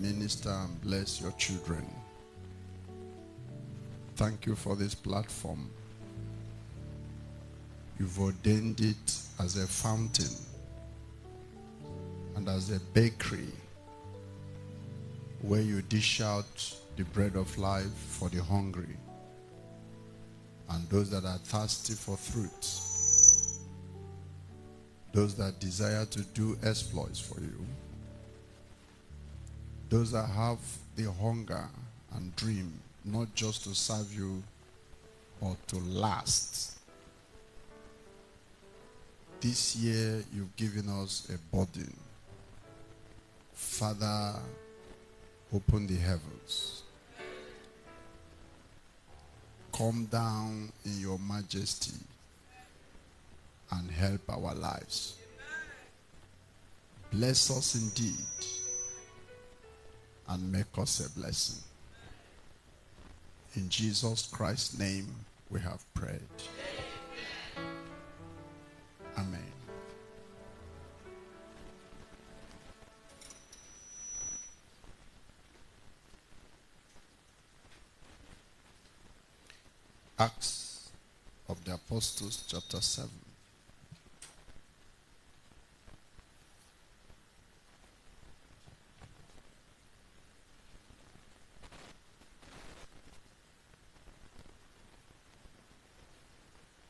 minister and bless your children. Thank you for this platform. You've ordained it as a fountain and as a bakery where you dish out the bread of life for the hungry and those that are thirsty for fruit. those that desire to do exploits for you. Those that have the hunger and dream, not just to serve you, but to last. This year, you've given us a burden. Father, open the heavens. Come down in your majesty and help our lives. Bless us indeed and make us a blessing. In Jesus Christ's name, we have prayed. Amen. Acts of the Apostles, chapter 7.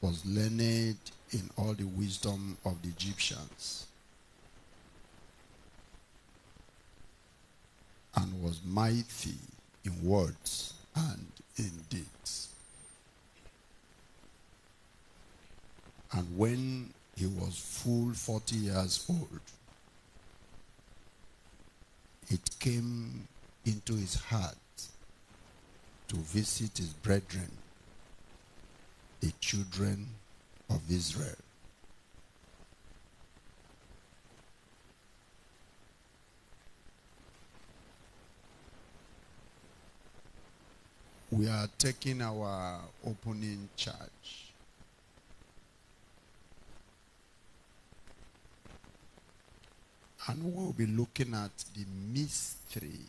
was learned in all the wisdom of the Egyptians and was mighty in words and in deeds. And when he was full 40 years old, it came into his heart to visit his brethren the children of Israel. We are taking our opening charge. And we'll be looking at the mystery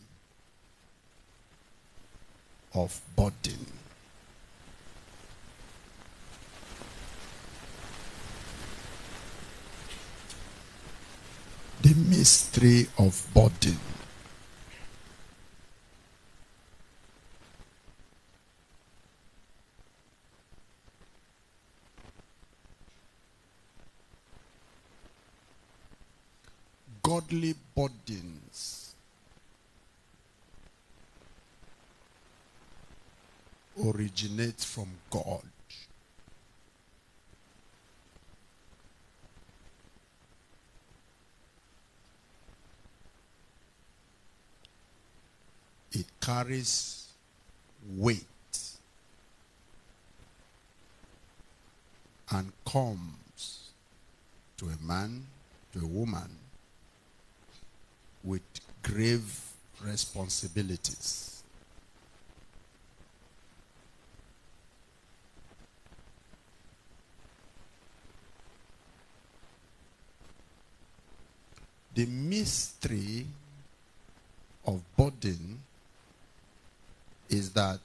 of Bodin. mystery of burden. Godly burdens originate from God. carries weight and comes to a man, to a woman, with grave responsibilities. The mystery of burden is that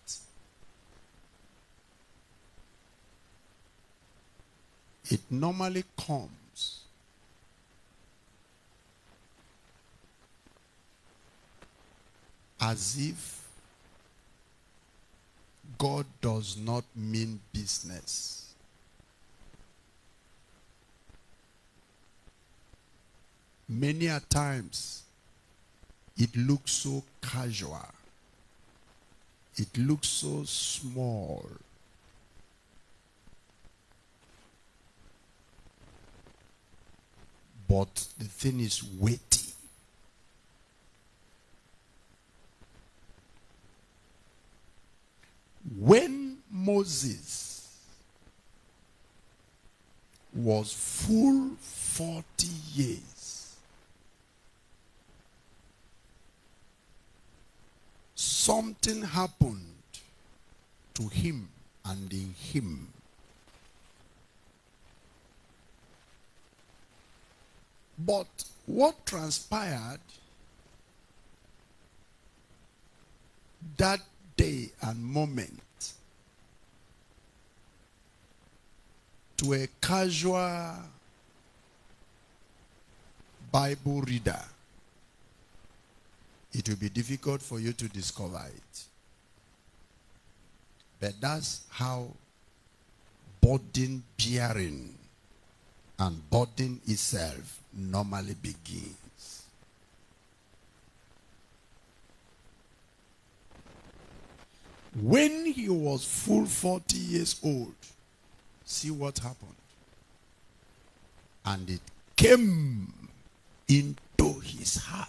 it normally comes as if God does not mean business. Many a times it looks so casual. It looks so small. But the thing is weighty. When Moses was full 40 years, something happened to him and in him. But what transpired that day and moment to a casual Bible reader it will be difficult for you to discover it. But that's how burden bearing and burden itself normally begins. When he was full 40 years old, see what happened. And it came into his heart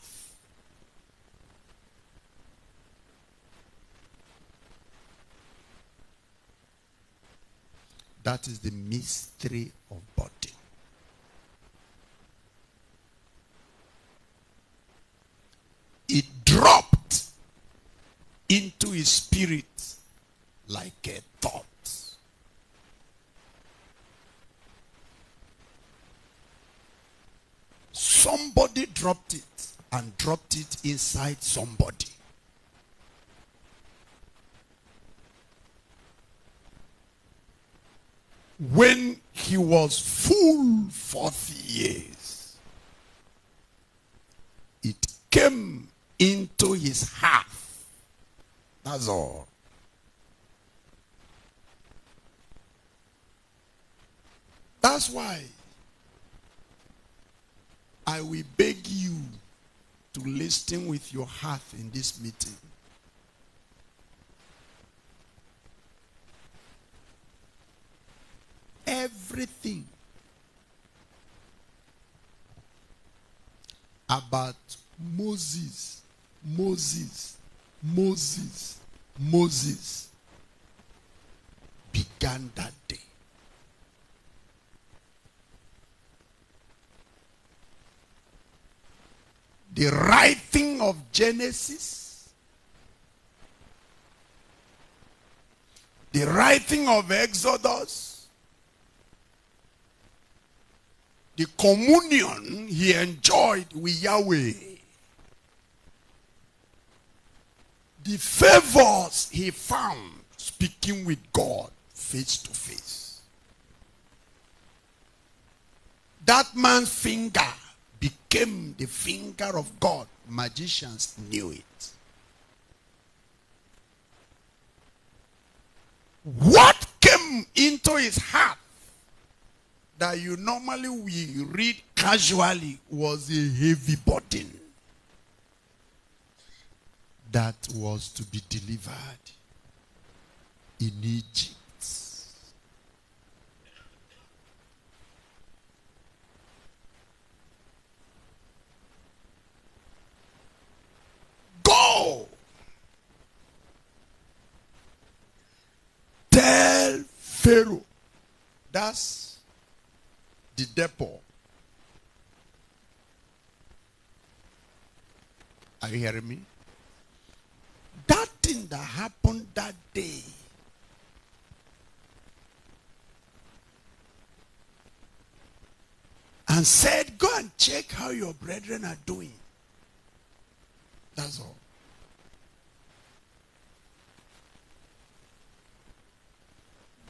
That is the mystery of body. It dropped into his spirit like a thought. Somebody dropped it and dropped it inside somebody. when he was full 40 years, it came into his heart. That's all. That's why I will beg you to listen with your heart in this meeting. everything about Moses, Moses, Moses, Moses began that day. The writing of Genesis, the writing of Exodus, the communion he enjoyed with Yahweh, the favors he found speaking with God face to face. That man's finger became the finger of God. Magicians knew it. What came into his heart that you normally we read casually was a heavy burden that was to be delivered in Egypt. Go! Tell Pharaoh. That's the depot. Are you hearing me? That thing that happened that day and said, Go and check how your brethren are doing. That's all.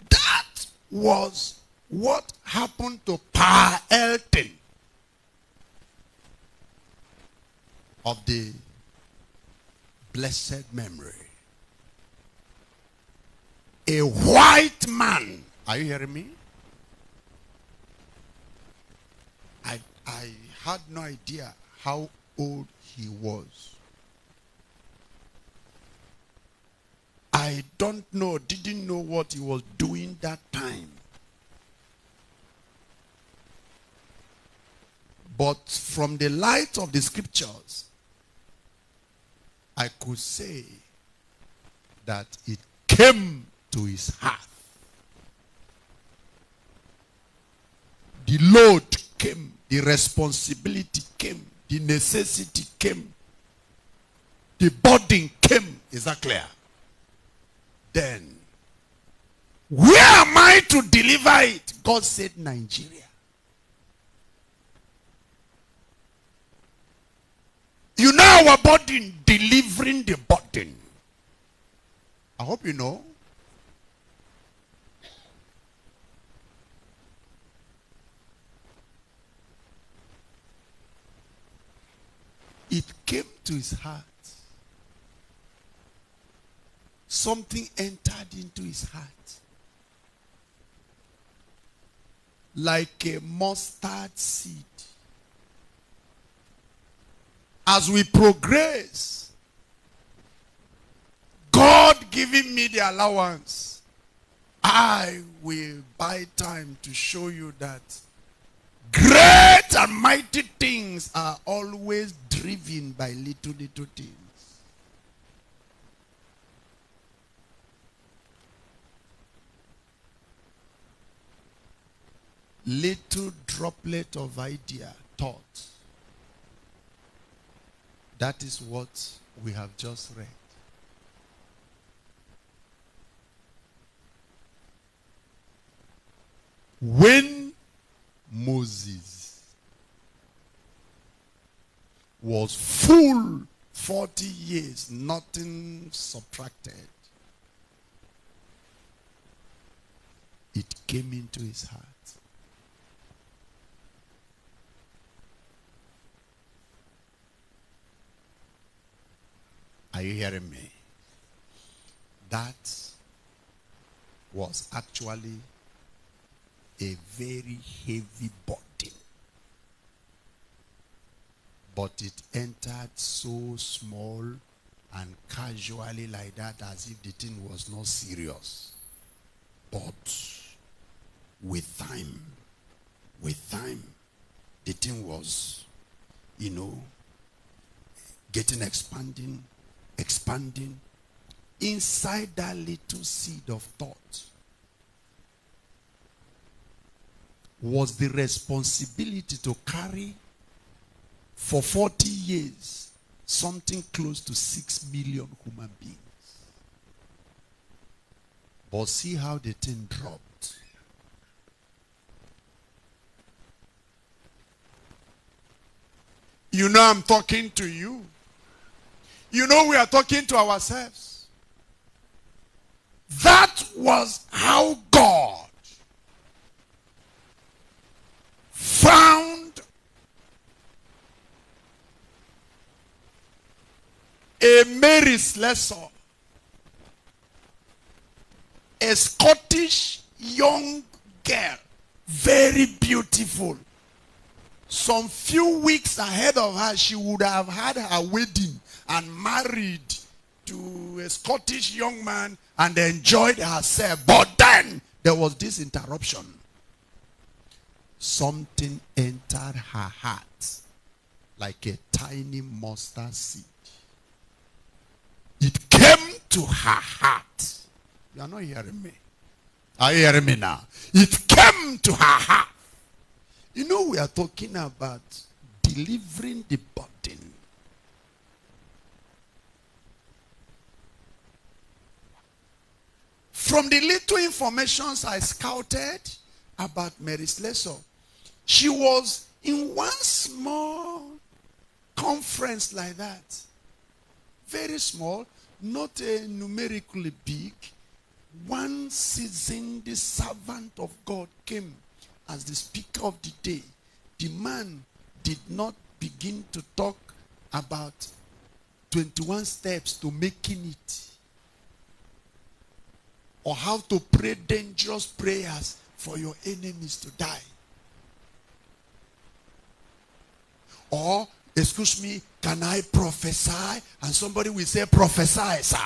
That was what happened to Pa Elton of the blessed memory? A white man. Are you hearing me? I, I had no idea how old he was. I don't know, didn't know what he was doing that time. But from the light of the scriptures, I could say that it came to his heart. The load came, the responsibility came, the necessity came, the burden came. Is that clear? Then, where am I to deliver it? God said, Nigeria. You know our burden, delivering the burden. I hope you know. It came to his heart. Something entered into his heart. Like a mustard seed as we progress, God giving me the allowance, I will buy time to show you that great and mighty things are always driven by little, little things. Little droplet of idea, thought that is what we have just read. When Moses was full 40 years, nothing subtracted, it came into his heart Are you hearing me? That was actually a very heavy burden. But it entered so small and casually like that as if the thing was not serious. But with time, with time, the thing was, you know, getting expanding expanding inside that little seed of thought was the responsibility to carry for 40 years something close to 6 million human beings. But see how the thing dropped. You know, I'm talking to you you know we are talking to ourselves. That was how God found a Mary's lesson, a Scottish young girl, very beautiful some few weeks ahead of her, she would have had her wedding and married to a Scottish young man and enjoyed herself. But then there was this interruption. Something entered her heart like a tiny mustard seed. It came to her heart. You are not hearing me. Are you hearing me now? It came to her heart you know, we are talking about delivering the burden. From the little informations I scouted about Mary Slessor, she was in one small conference like that. Very small, not a numerically big. One season, the servant of God came as the speaker of the day, the man did not begin to talk about 21 steps to making it or how to pray dangerous prayers for your enemies to die. Or, excuse me, can I prophesy? And somebody will say, prophesy, sir.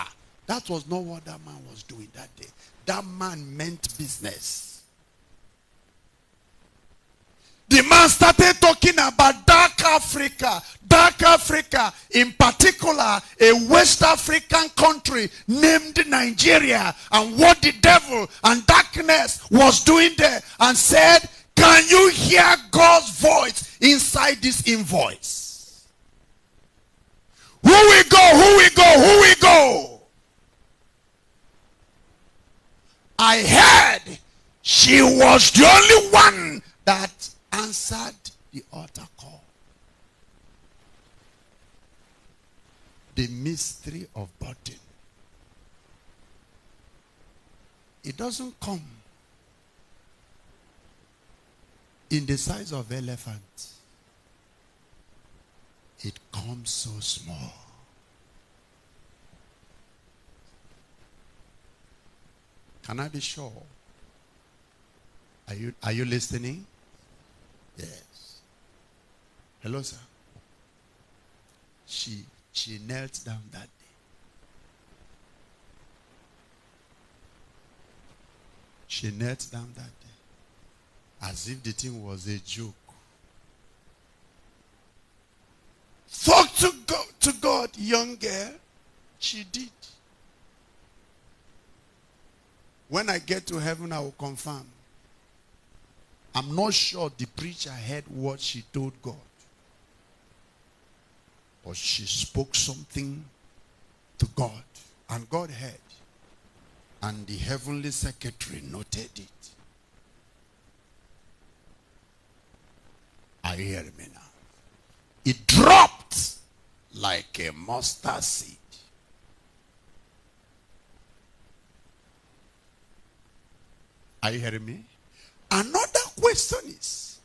That was not what that man was doing that day. That man meant business the man started talking about dark Africa. Dark Africa, in particular, a West African country named Nigeria, and what the devil and darkness was doing there, and said, Can you hear God's voice inside this invoice? Who we go, who we go, who we go? I heard she was the only one that answered the altar call. The mystery of burden. It doesn't come in the size of elephant. It comes so small. Can I be sure? Are you, are you listening? Yes. Hello, sir. She she knelt down that day. She knelt down that day. As if the thing was a joke. Fuck to God, to God, young girl. She did. When I get to heaven, I will confirm. I'm not sure the preacher heard what she told God. But she spoke something to God, and God heard. And the heavenly secretary noted it. I hear me now. It dropped like a mustard seed. Are you hearing me? Another question is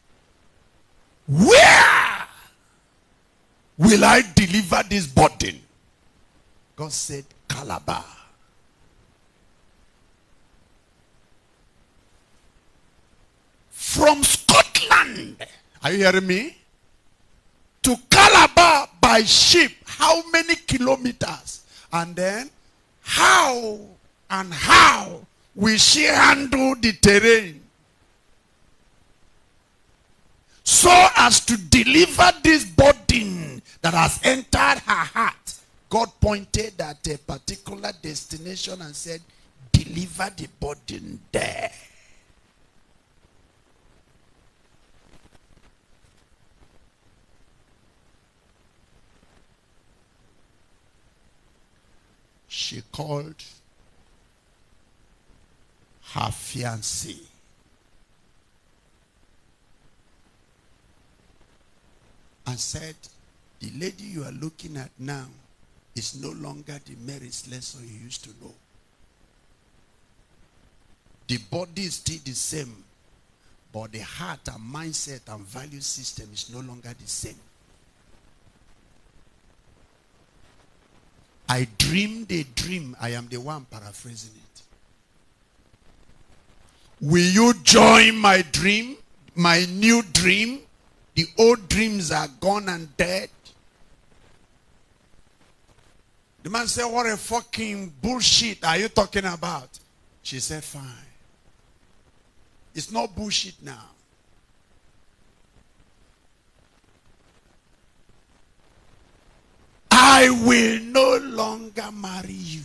where will I deliver this burden? God said, Calabar. From Scotland, are you hearing me? To Calabar by ship, how many kilometers? And then, how and how will she handle the terrain? so as to deliver this burden that has entered her heart. God pointed at a particular destination and said, deliver the burden there. She called her fiancé and said, The lady you are looking at now is no longer the merits lesson you used to know. The body is still the same, but the heart and mindset and value system is no longer the same. I dreamed a dream. I am the one paraphrasing it. Will you join my dream, my new dream? The old dreams are gone and dead. The man said, What a fucking bullshit are you talking about? She said, Fine. It's not bullshit now. I will no longer marry you.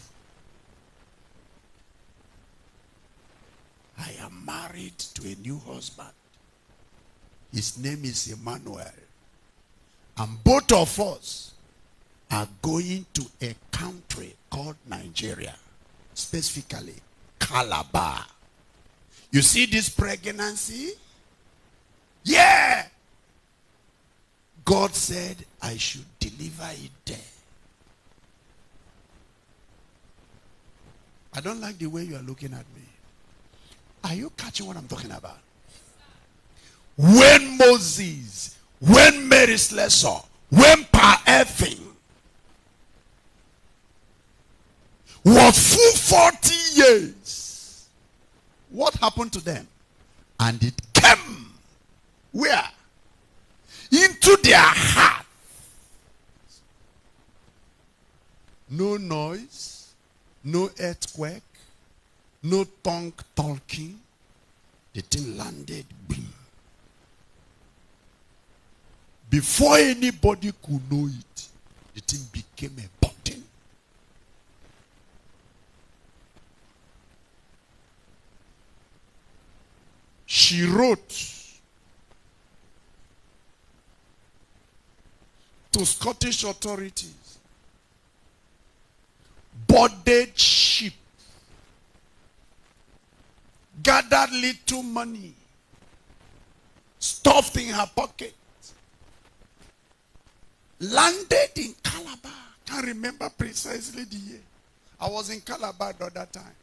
I am married to a new husband. His name is Emmanuel. And both of us are going to a country called Nigeria, specifically Calabar. You see this pregnancy? Yeah! God said, I should deliver it there. I don't like the way you are looking at me. Are you catching what I'm talking about? when Moses, when Mary Slessor, when Pa was full 40 years, what happened to them? And it came where? Into their heart. No noise, no earthquake, no tongue talking. The thing landed. Boom. Before anybody could know it, the thing became important. She wrote to Scottish authorities boarded ship, gathered little money, stuffed in her pocket, landed in Calabar. Can't remember precisely the year. I was in Calabar at that time.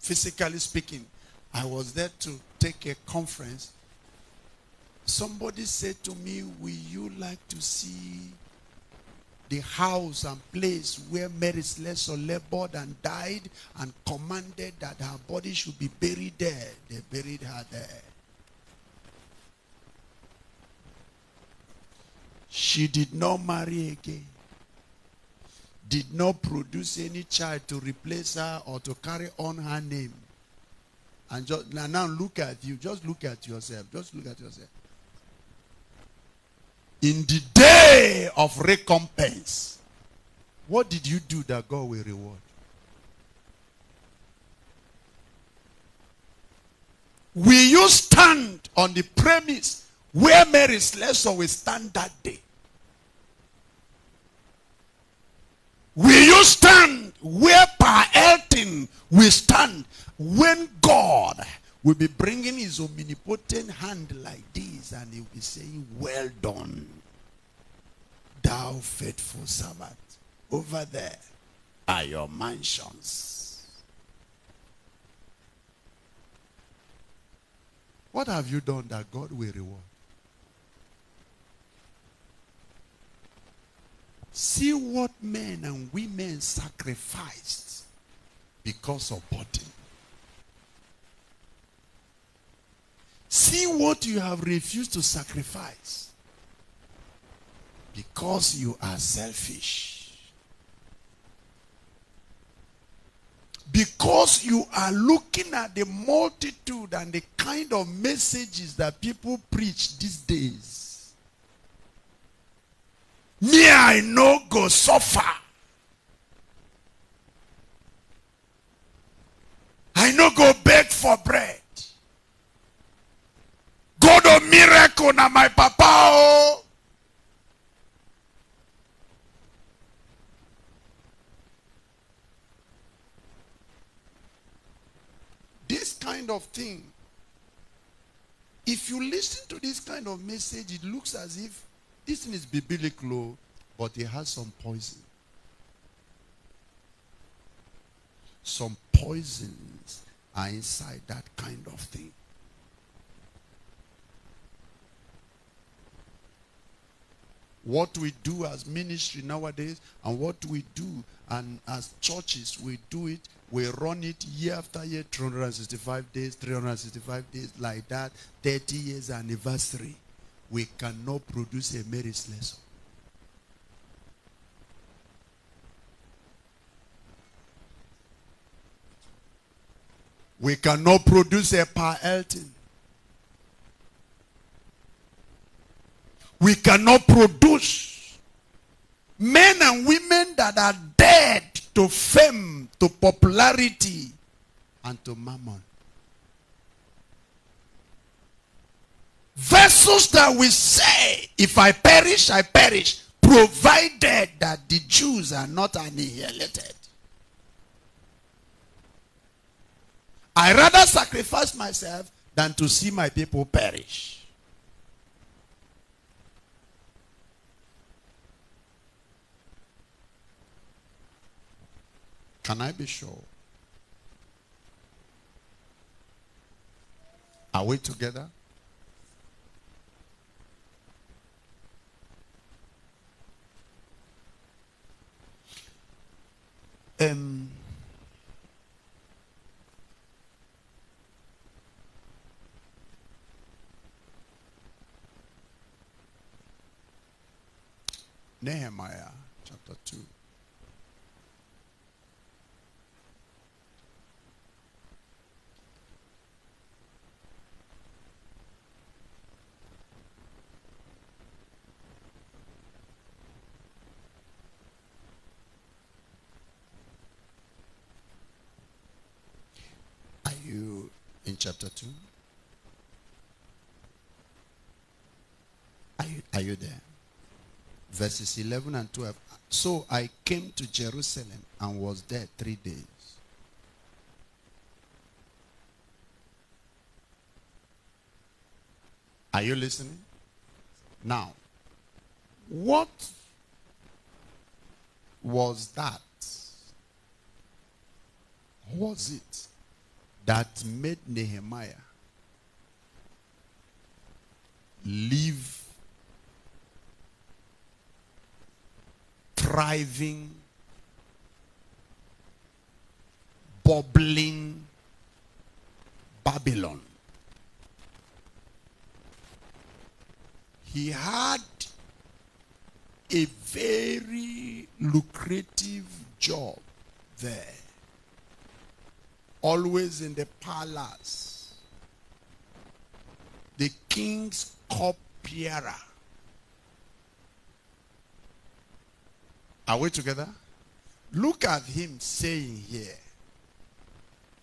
Physically speaking, I was there to take a conference. Somebody said to me, Will you like to see the house and place where Mary Slessor labored and died and commanded that her body should be buried there? They buried her there. She did not marry again. Did not produce any child to replace her or to carry on her name. And just, now, now look at you. Just look at yourself. Just look at yourself. In the day of recompense, what did you do that God will reward? Will you stand on the premise where Mary slept shall we stand that day. Will you stand where Per Elton will stand when God will be bringing his omnipotent hand like this and he'll be saying, well done, thou faithful servant. Over there are your mansions. What have you done that God will reward? See what men and women sacrificed because of body. See what you have refused to sacrifice because you are selfish. Because you are looking at the multitude and the kind of messages that people preach these days me i no go suffer i no go beg for bread god of oh, miracle na my papa Oh, this kind of thing if you listen to this kind of message it looks as if this thing is biblical, but it has some poison. Some poisons are inside that kind of thing. what we do as ministry nowadays and what we do and as churches we do it we run it year after year 365 days 365 days like that 30 years anniversary we cannot produce a merit lesson. We cannot produce a Pa Elton. We cannot produce men and women that are dead to fame, to popularity, and to mammon. Vessels that will say, if I perish, I perish, provided that the Jews are not annihilated. I rather sacrifice myself than to see my people perish. Can I be sure? Are we together? Um, Nehemiah chapter 2. chapter 2. Are you, are you there? Verses 11 and 12. So I came to Jerusalem and was there three days. Are you listening? Now, what was that? Was it? that made Nehemiah live thriving, bubbling Babylon. He had a very lucrative job there always in the palace. The king's cupbearer. Are we together? Look at him saying here,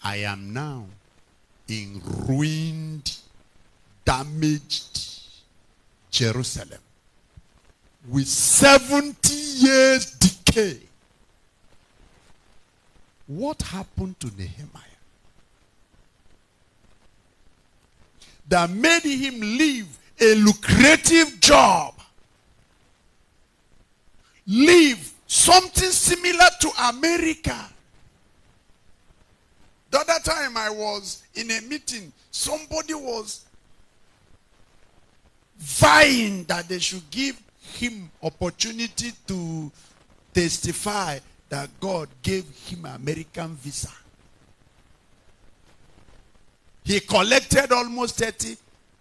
I am now in ruined, damaged Jerusalem with 70 years decay. What happened to Nehemiah? that made him leave a lucrative job, leave something similar to America. The other time I was in a meeting, somebody was vying that they should give him opportunity to testify that God gave him American visa. He collected almost 30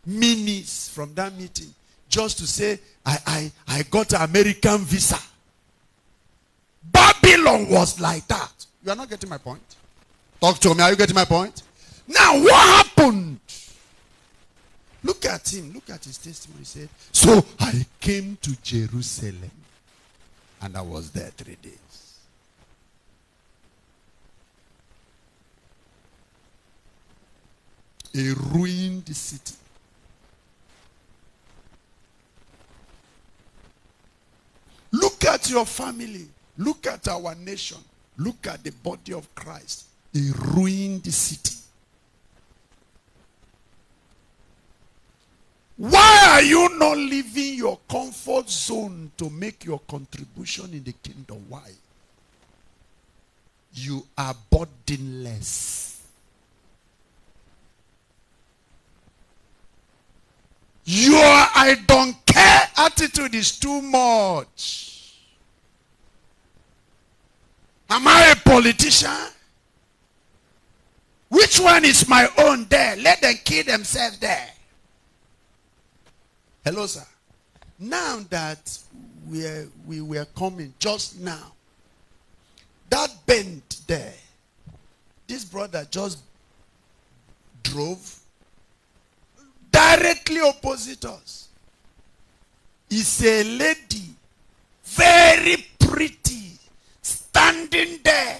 minis from that meeting just to say, I, I, I got an American visa. Babylon was like that. You are not getting my point. Talk to me. Are you getting my point? Now, what happened? Look at him. Look at his testimony. He said, So I came to Jerusalem and I was there three days. a ruined city. Look at your family. Look at our nation. Look at the body of Christ. A ruined city. Why are you not leaving your comfort zone to make your contribution in the kingdom? Why? You are burdenless. Your I don't care attitude is too much. Am I a politician? Which one is my own there? Let them kill themselves there. Hello, sir. Now that we, are, we were coming just now, that bend there, this brother just drove direct directly opposite us is a lady, very pretty, standing there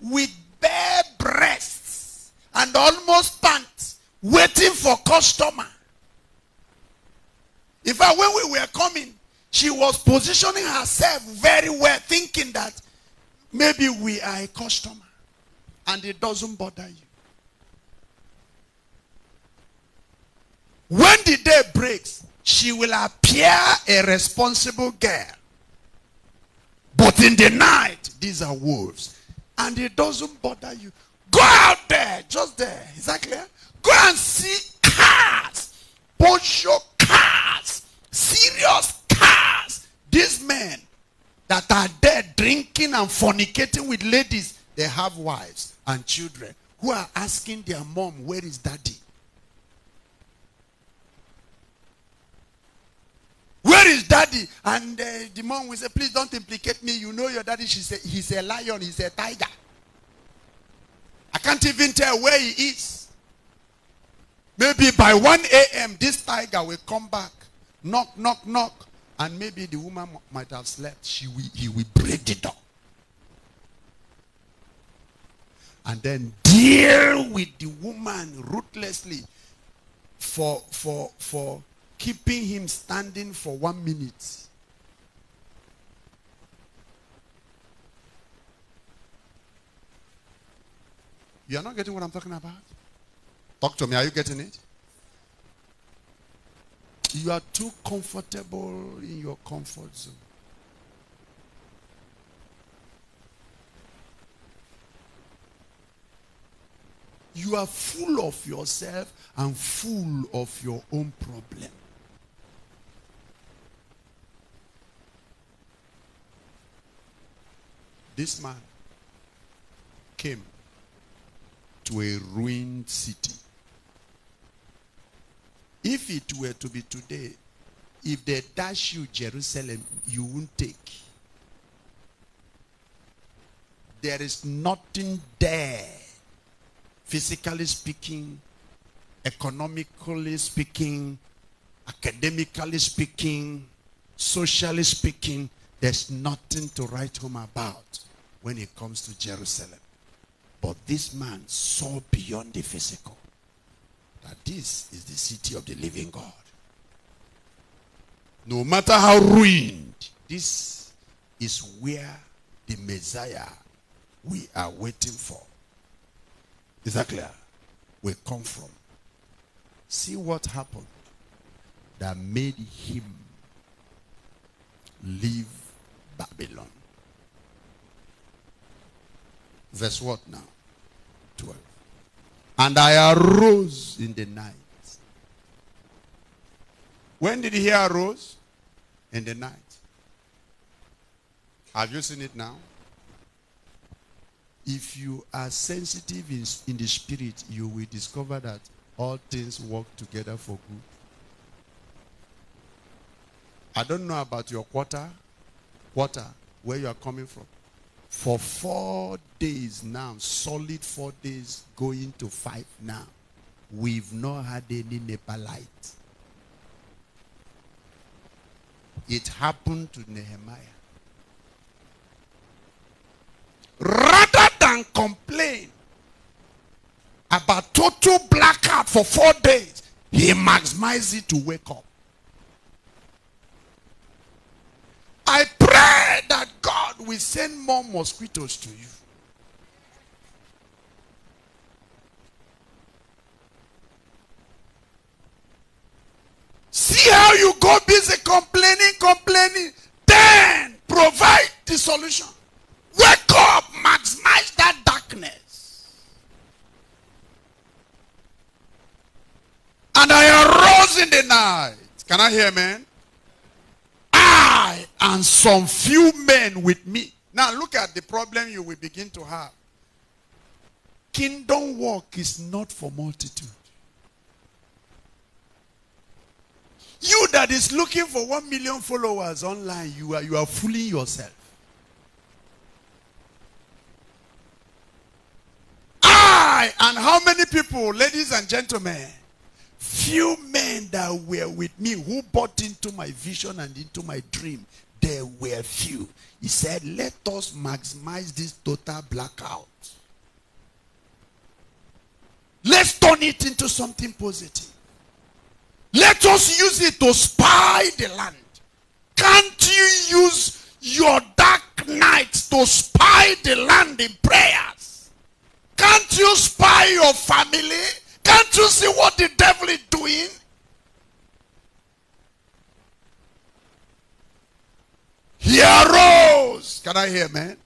with bare breasts and almost pants, waiting for customer. In fact, when we were coming, she was positioning herself very well, thinking that maybe we are a customer and it doesn't bother you. When the day breaks, she will appear a responsible girl. But in the night, these are wolves. And it doesn't bother you. Go out there, just there. Is that clear? Go and see cars. Porsche cars. Serious cars. These men that are there drinking and fornicating with ladies, they have wives and children who are asking their mom, where is daddy? Where is daddy? And uh, the mom will say, Please don't implicate me. You know your daddy. She said, He's a lion. He's a tiger. I can't even tell where he is. Maybe by 1 a.m., this tiger will come back. Knock, knock, knock. And maybe the woman might have slept. She will, he will break the door. And then deal with the woman ruthlessly for, for, for keeping him standing for one minute. You are not getting what I'm talking about? Talk to me. Are you getting it? You are too comfortable in your comfort zone. You are full of yourself and full of your own problems. This man came to a ruined city. If it were to be today, if they dash you Jerusalem, you won't take. There is nothing there, physically speaking, economically speaking, academically speaking, socially speaking, there's nothing to write home about when it comes to Jerusalem. But this man saw beyond the physical that this is the city of the living God. No matter how ruined, this is where the Messiah we are waiting for. Is that clear? We come from. See what happened that made him leave Babylon. Verse what now? 12. And I arose in the night. When did he arose? In the night. Have you seen it now? If you are sensitive in, in the spirit, you will discover that all things work together for good. I don't know about your quarter, quarter, where you are coming from for four days now, solid four days, going to five now, we've not had any nepalite. It happened to Nehemiah. Rather than complain about total blackout for four days, he maximized it to wake up. will send more mosquitoes to you. See how you go busy complaining, complaining. Then provide the solution. Wake up, maximize that darkness. And I arose in the night. Can I hear, man? and some few men with me. Now look at the problem you will begin to have. Kingdom work is not for multitude. You that is looking for one million followers online, you are, you are fooling yourself. I, and how many people, ladies and gentlemen, few men that were with me who bought into my vision and into my dream there were few. He said, Let us maximize this total blackout. Let's turn it into something positive. Let us use it to spy the land. Can't you use your dark nights to spy the land in prayers? Can't you spy your family? Can't you see what the devil is doing? He arose. Can I hear, man?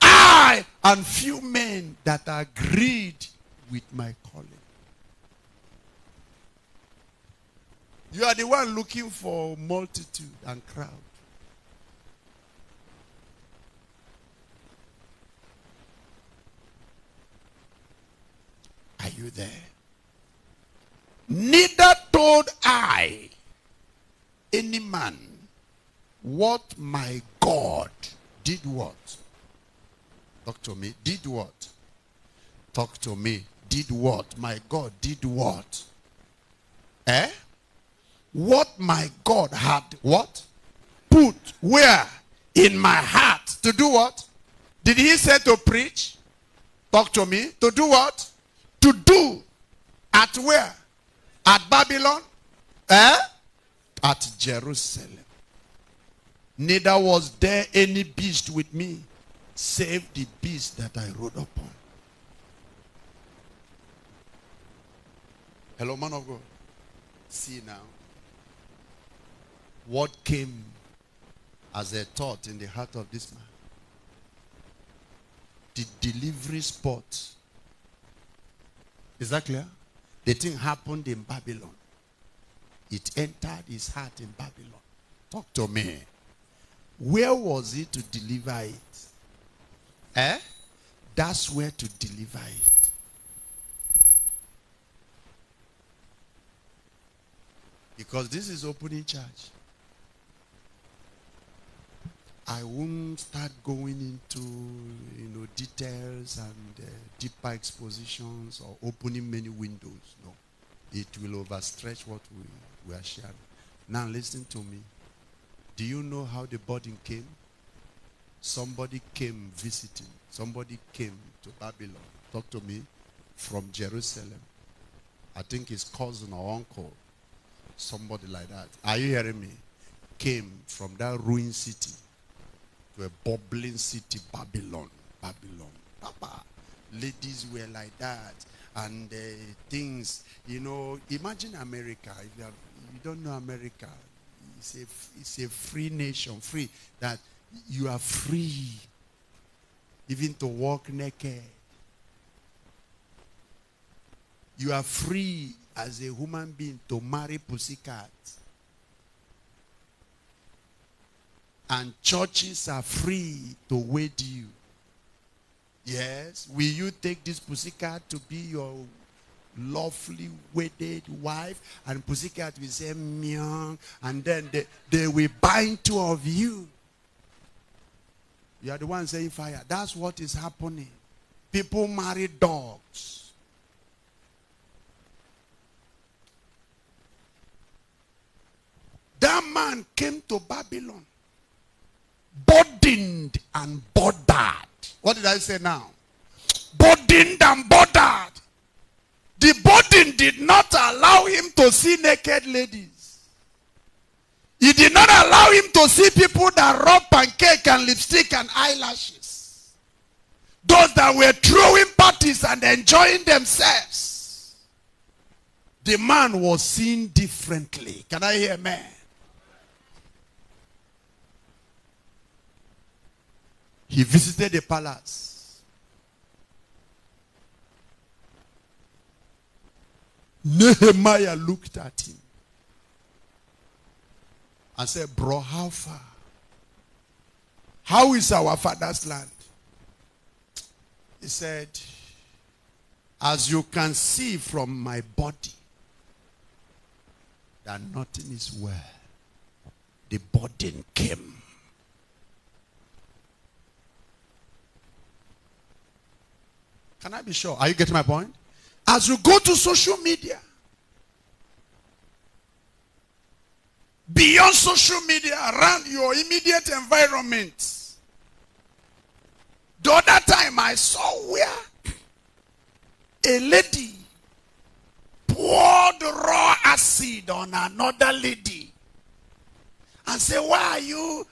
I and few men that agreed with my calling. You are the one looking for multitude and crowd. Are you there? Neither told I any man what my God did what? Talk to me. Did what? Talk to me. Did what? My God did what? Eh? What my God had what? Put where? In my heart. To do what? Did he say to preach? Talk to me. To do what? To do. At where? At Babylon? Eh? At Jerusalem. Neither was there any beast with me, save the beast that I rode upon. Hello, man of God. See now what came as a thought in the heart of this man. The delivery spot. Is that clear? The thing happened in Babylon. It entered his heart in Babylon. Talk to me. Where was he to deliver it? Eh? That's where to deliver it. Because this is opening church. I won't start going into you know details and uh, deeper expositions or opening many windows. No, it will overstretch what we, we are sharing. Now listen to me. Do you know how the burden came? Somebody came visiting. Somebody came to Babylon. Talk to me from Jerusalem. I think his cousin or uncle, somebody like that. Are you hearing me? Came from that ruined city to a bubbling city, Babylon. Babylon. Papa, Ladies were like that. And uh, things, you know, imagine America. If you, have, you don't know America, it's a, it's a free nation, free, that you are free even to walk naked. You are free as a human being to marry pussycat. And churches are free to wed you. Yes, will you take this pussycat to be your lovely wedded wife and pussycat will say meow and then they, they will bind two of you you are the one saying fire that's what is happening people marry dogs that man came to babylon burdened and bothered what did i say now burdened and bothered the burden did not allow him to see naked ladies. He did not allow him to see people that rub pancake and lipstick and eyelashes. Those that were throwing parties and enjoying themselves. The man was seen differently. Can I hear man? He visited the palace. Nehemiah looked at him and said, Bro, how far? How is our father's land? He said, As you can see from my body, that nothing is well. The burden came. Can I be sure? Are you getting my point? As you go to social media, beyond social media, around your immediate environment. The other time I saw where a lady poured raw acid on another lady and said, why are you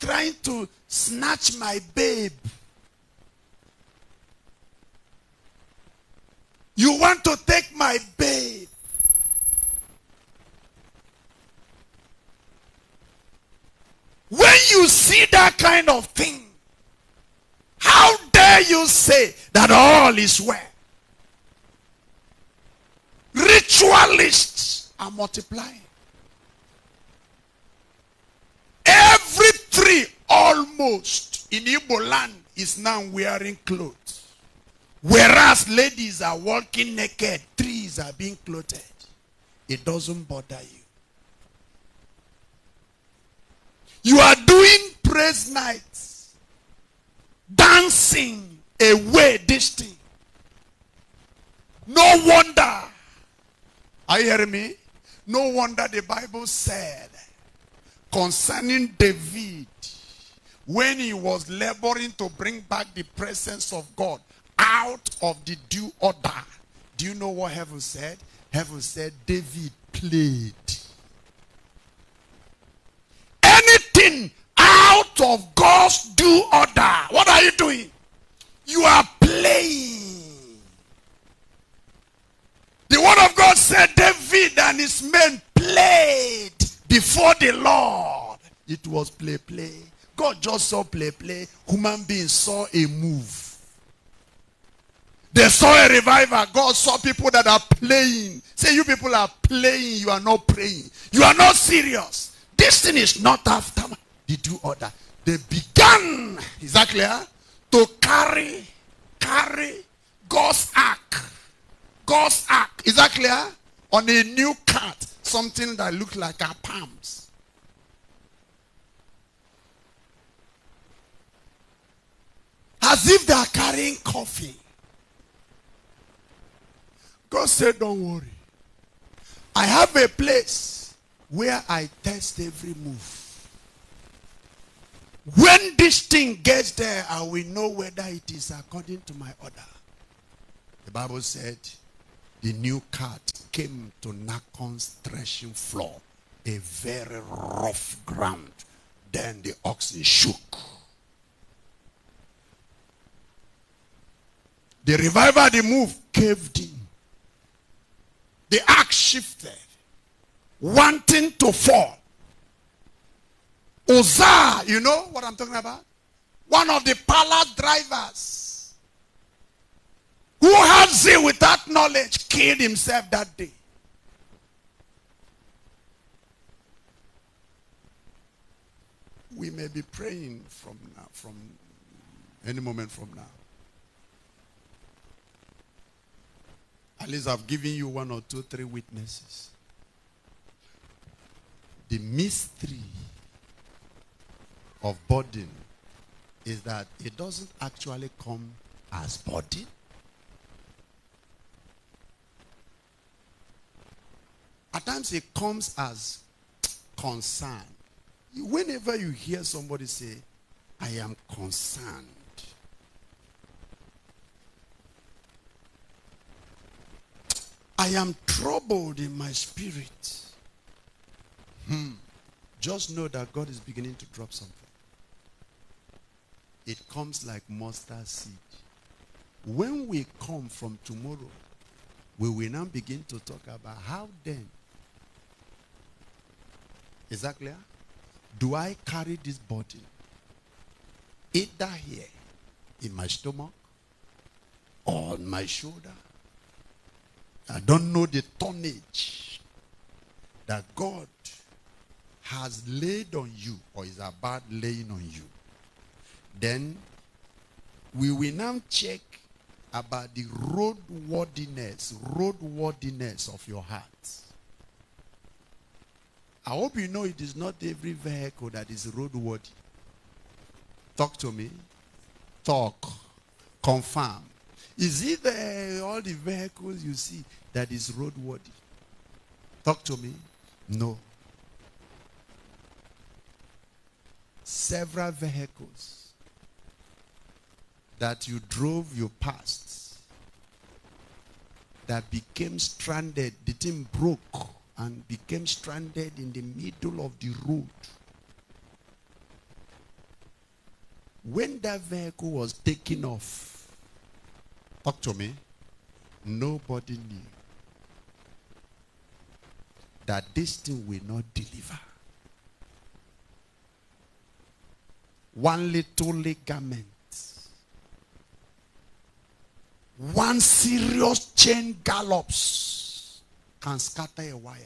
trying to snatch my babe? You want to take my babe. When you see that kind of thing, how dare you say that all is well? Ritualists are multiplying. Every tree almost in Igbo land is now wearing clothes. Whereas ladies are walking naked, trees are being clothed. It doesn't bother you. You are doing praise nights, dancing away this thing. No wonder. Are you hearing me? No wonder the Bible said concerning David when he was laboring to bring back the presence of God out of the due order. Do you know what heaven said? Heaven said, David played. Anything out of God's due order. What are you doing? You are playing. The word of God said David and his men played before the Lord. It was play, play. God just saw play, play. Human beings saw a move. They saw a revival. God saw people that are playing. Say, you people are playing. You are not praying. You are not serious. This thing is not after. They do all They began, is that clear? To carry, carry God's ark. God's ark. Is that clear? On a new cart. Something that looked like our palms. As if they are carrying coffee. God said, Don't worry. I have a place where I test every move. When this thing gets there, I will know whether it is according to my order. The Bible said, the new cart came to Nacon's threshing floor, a very rough ground. Then the oxen shook. The revival, the move, caved in. The ark shifted, wanting to fall. Uzzah, you know what I'm talking about? One of the palace drivers who had zeal without knowledge killed himself that day. We may be praying from now, from any moment from now. At least I've given you one or two, three witnesses. The mystery of burden is that it doesn't actually come as burden. At times it comes as concern. Whenever you hear somebody say, I am concerned, I am troubled in my spirit. Hmm. Just know that God is beginning to drop something. It comes like mustard seed. When we come from tomorrow, we will now begin to talk about how then. Is that clear? Do I carry this body? Either here, in my stomach, or on my shoulder, I don't know the tonnage that God has laid on you or is about laying on you. Then we will now check about the roadworthiness, roadworthiness of your heart. I hope you know it is not every vehicle that is roadworthy. Talk to me. Talk. Confirm. Is it the, all the vehicles you see that is roadworthy? Talk to me. No. Several vehicles that you drove, you passed, that became stranded. The thing broke and became stranded in the middle of the road. When that vehicle was taken off, Talk to me. Nobody knew that this thing will not deliver. One little ligament, one serious chain gallops can scatter a wire.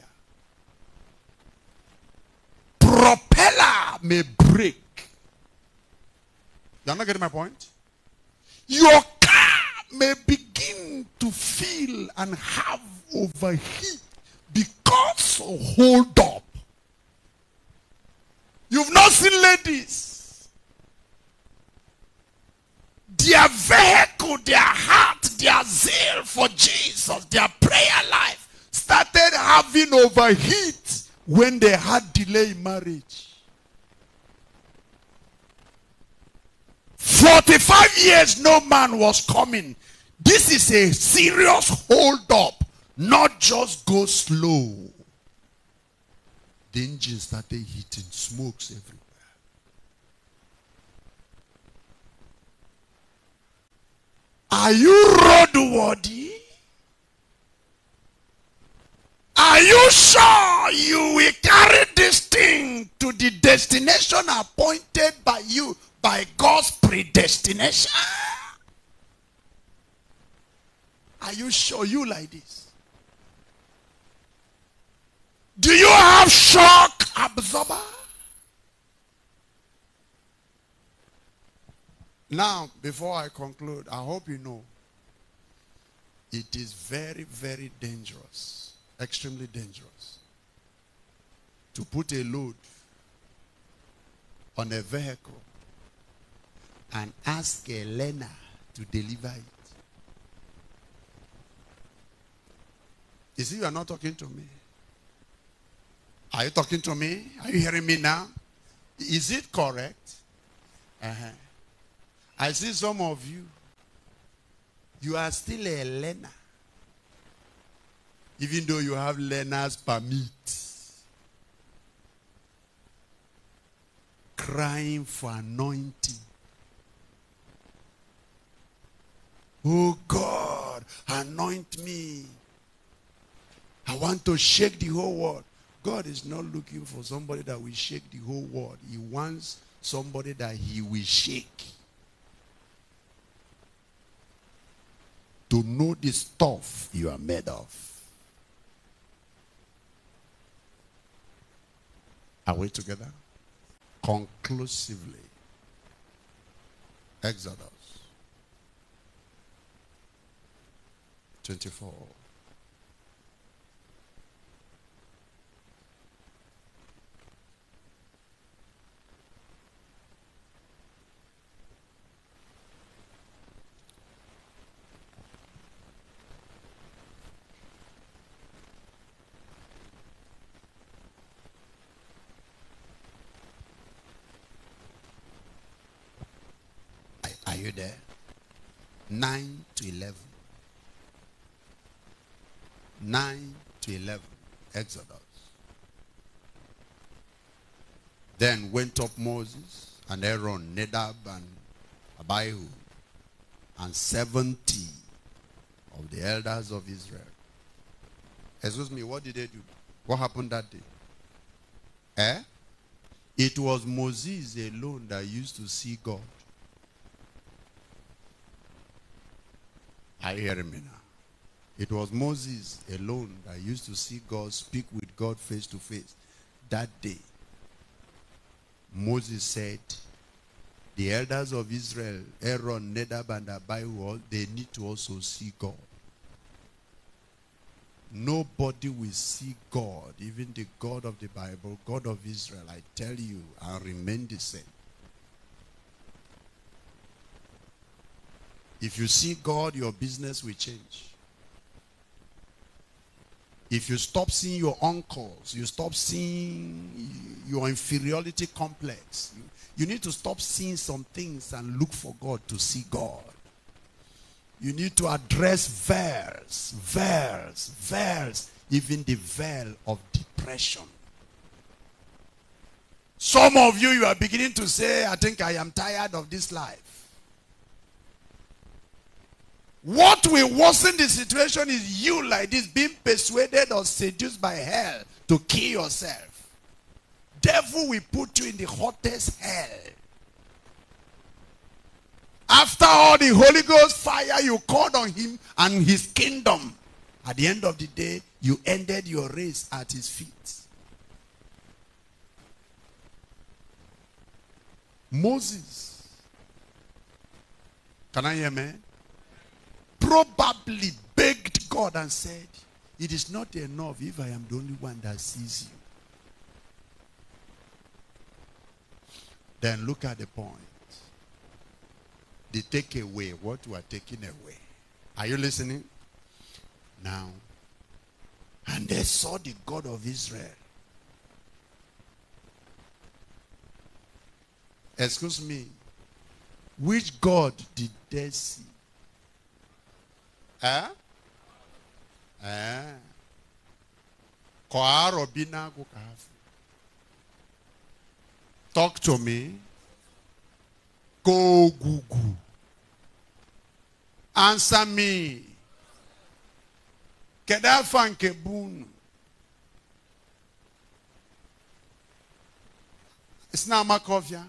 Propeller may break. You're not getting my point? Your may begin to feel and have overheat because hold up. You've not seen ladies. Their vehicle, their heart, their zeal for Jesus, their prayer life started having overheat when they had delay marriage. 45 years no man was coming this is a serious hold up, not just go slow. The engine started hitting smokes everywhere. Are you roadworthy? Are you sure you will carry this thing to the destination appointed by you by God's predestination? Are you sure you like this? Do you have shock absorber? Now, before I conclude, I hope you know it is very, very dangerous, extremely dangerous, to put a load on a vehicle and ask a learner to deliver it. You see, you are not talking to me. Are you talking to me? Are you hearing me now? Is it correct? Uh -huh. I see some of you. You are still a learner. Even though you have learner's permit. Crying for anointing. Oh God, anoint me. I want to shake the whole world. God is not looking for somebody that will shake the whole world. He wants somebody that he will shake. To know the stuff you are made of. Are we together? Conclusively. Exodus 24. you there? 9 to 11. 9 to 11. Exodus. Then went up Moses and Aaron, Nadab and Abihu, and 70 of the elders of Israel. Excuse me, what did they do? What happened that day? Eh? It was Moses alone that used to see God. I hear him now. It was Moses alone that used to see God, speak with God face to face. That day, Moses said, the elders of Israel, Aaron, Nadab, and Abihu, they need to also see God. Nobody will see God, even the God of the Bible, God of Israel, I tell you, and remain the same. If you see God, your business will change. If you stop seeing your uncles, you stop seeing your inferiority complex. You, you need to stop seeing some things and look for God to see God. You need to address veils, veils, veils, even the veil of depression. Some of you, you are beginning to say, I think I am tired of this life. What will worsen the situation is you like this being persuaded or seduced by hell to kill yourself. Devil will put you in the hottest hell. After all the Holy Ghost fire you called on him and his kingdom, at the end of the day, you ended your race at his feet. Moses. Can I hear man? probably begged God and said, It is not enough if I am the only one that sees you. Then look at the point. They take away what you are taking away. Are you listening? Now, and they saw the God of Israel. Excuse me. Which God did they see? kɔ arɔ bi n'ago kaafu talk to me go gugu answer me kɛdafa nke bunu sinamaka ɔfia.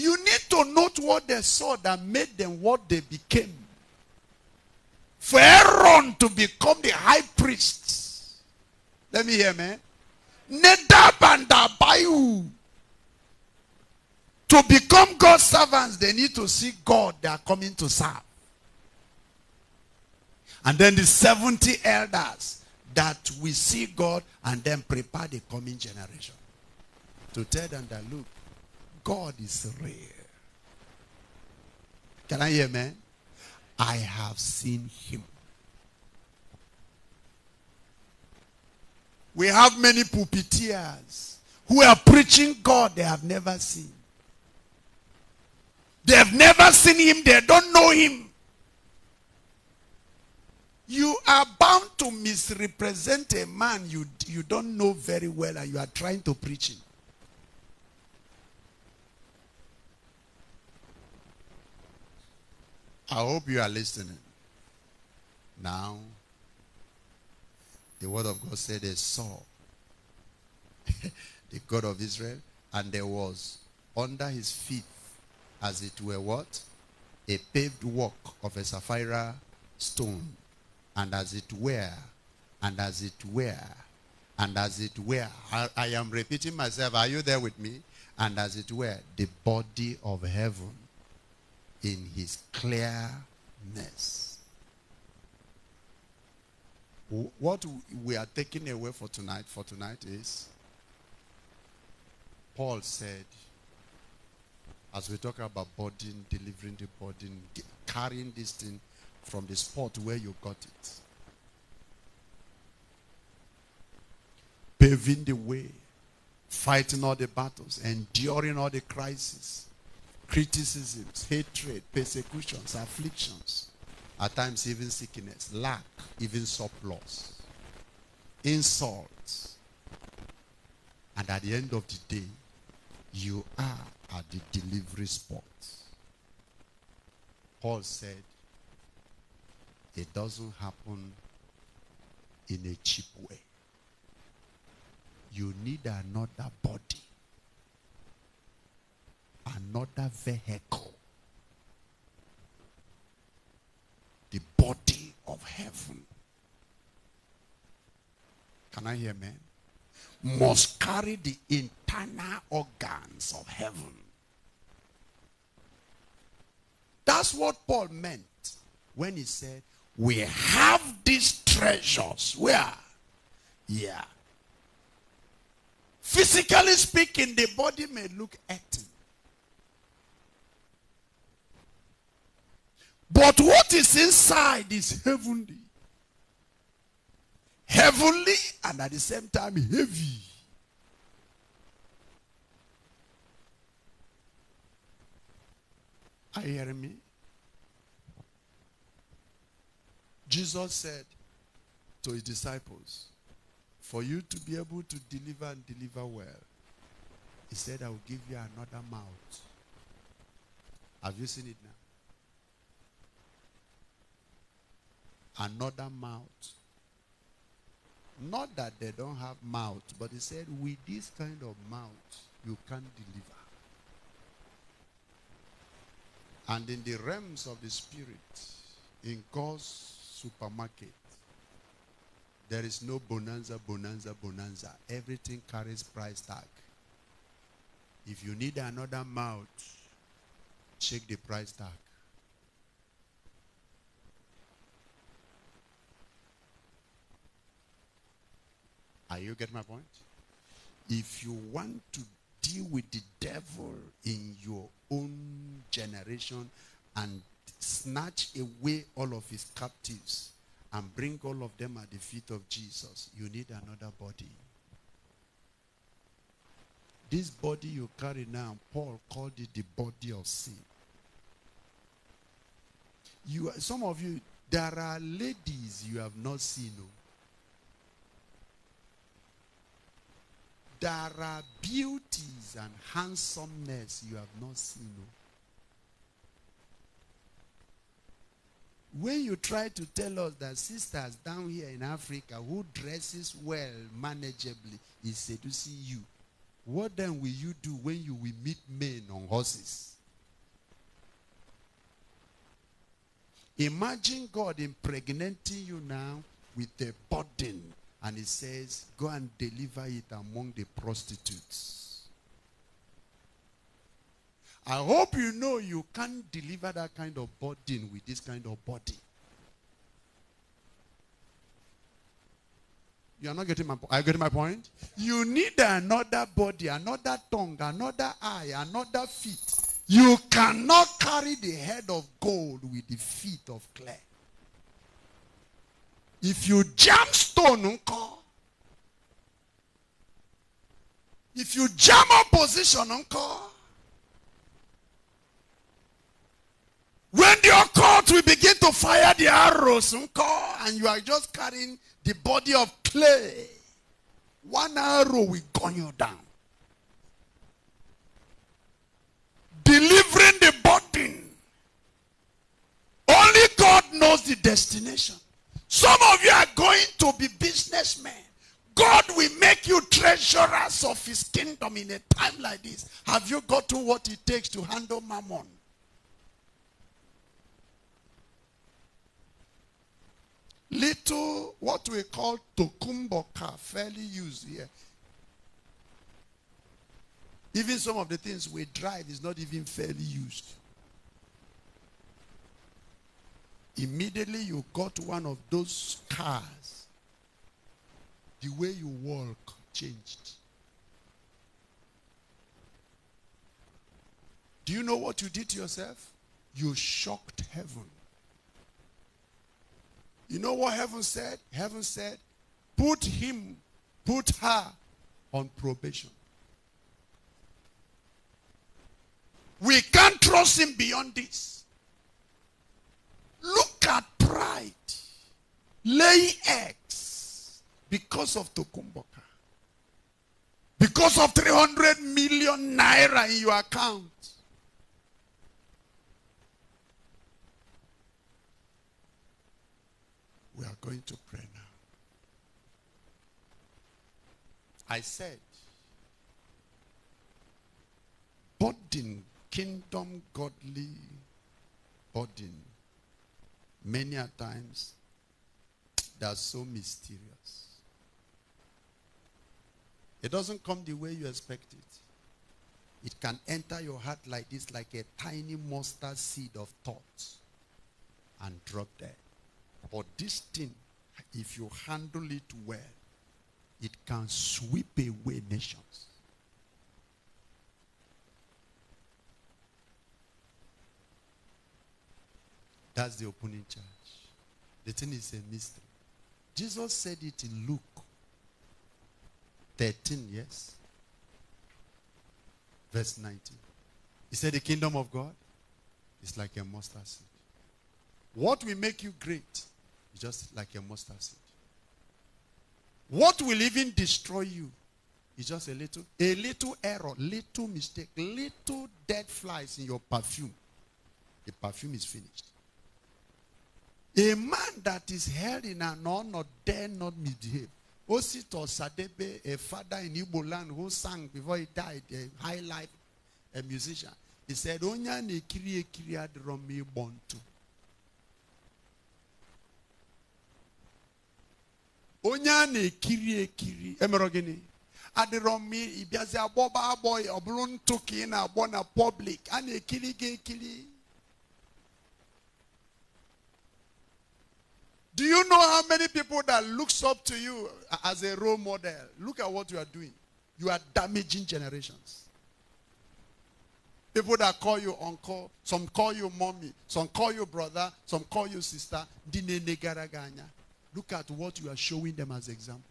You need to note what they saw that made them what they became. For Aaron to become the high priest. Let me hear, man. Nadab and Abihu. To become God's servants, they need to see God they are coming to serve. And then the 70 elders that we see God and then prepare the coming generation. To tell them that, look, God is real. Can I hear man? I have seen him. We have many pulpiteers who are preaching God they have never seen. They have never seen him. They don't know him. You are bound to misrepresent a man you, you don't know very well and you are trying to preach him. I hope you are listening. Now, the word of God said they saw the God of Israel, and there was under his feet, as it were, what? A paved walk of a sapphire stone, and as it were, and as it were, and as it were. I, I am repeating myself. Are you there with me? And as it were, the body of heaven in his clearness. What we are taking away for tonight, for tonight is Paul said, as we talk about burden, delivering the burden, carrying this thing from the spot where you got it, paving the way, fighting all the battles, enduring all the crises, criticisms, hatred, persecutions, afflictions, at times even sickness, lack, even surplus, insults. And at the end of the day, you are at the delivery spot. Paul said, it doesn't happen in a cheap way. You need another body another vehicle. The body of heaven. Can I hear man? Must carry the internal organs of heaven. That's what Paul meant when he said, We have these treasures. Where? Yeah. Physically speaking, the body may look empty. But what is inside is heavenly. Heavenly and at the same time heavy. Are you hearing me? Jesus said to his disciples, For you to be able to deliver and deliver well, he said, I will give you another mouth. Have you seen it now? another mouth. Not that they don't have mouth, but he said, with this kind of mouth, you can't deliver. And in the realms of the spirit, in God's supermarket, there is no bonanza, bonanza, bonanza. Everything carries price tag. If you need another mouth, check the price tag. Are you getting my point? If you want to deal with the devil in your own generation and snatch away all of his captives and bring all of them at the feet of Jesus, you need another body. This body you carry now, Paul called it the body of sin. You, some of you, there are ladies you have not seen. Oh. There are beauties and handsomeness you have not seen. Oh. When you try to tell us that sisters down here in Africa who dresses well manageably is seducing you, what then will you do when you will meet men on horses? Imagine God impregnating you now with a burden and he says, Go and deliver it among the prostitutes. I hope you know you can't deliver that kind of burden with this kind of body. You are not getting my point. Are you getting my point? You need another body, another tongue, another eye, another feet. You cannot carry the head of gold with the feet of clay if you jam stone uncle. if you jam opposition uncle. when the occult will begin to fire the arrows uncle, and you are just carrying the body of clay one arrow will gun you down. Delivering the burden. Only God knows the destination. Some of you are going to be businessmen. God will make you treasurers of his kingdom in a time like this. Have you gotten what it takes to handle mammon? Little, what we call tokumboka, fairly used here. Even some of the things we drive is not even fairly used. Immediately you got one of those cars, the way you walk changed. Do you know what you did to yourself? You shocked heaven. You know what heaven said? Heaven said, put him, put her on probation. We can't trust him beyond this. Look at pride laying eggs because of Tokumboka. Because of 300 million naira in your account. We are going to pray now. I said, burden, kingdom, godly burden many a times they are so mysterious. It doesn't come the way you expect it. It can enter your heart like this, like a tiny mustard seed of thought, and drop there. But this thing, if you handle it well, it can sweep away nations. That's the opening charge. The thing is a mystery. Jesus said it in Luke 13, yes? Verse 19. He said, The kingdom of God is like a mustard seed. What will make you great is just like a mustard seed. What will even destroy you is just a little, a little error, little mistake, little dead flies in your perfume. The perfume is finished. A man that is held in an honor dare not misbehave. Osito Sadebe, a father in Igbo land who sang before he died, a high life a musician, he said, Onya ne kiri kiri adromi bontu. Onya ne kiri kiri. Emerogini. Adromi, ibiazi aboba aboy, oblun tuki na abona public. Ane kiri ge Do you know how many people that looks up to you as a role model? Look at what you are doing. You are damaging generations. People that call you uncle, some call you mommy, some call you brother, some call you sister. Look at what you are showing them as examples.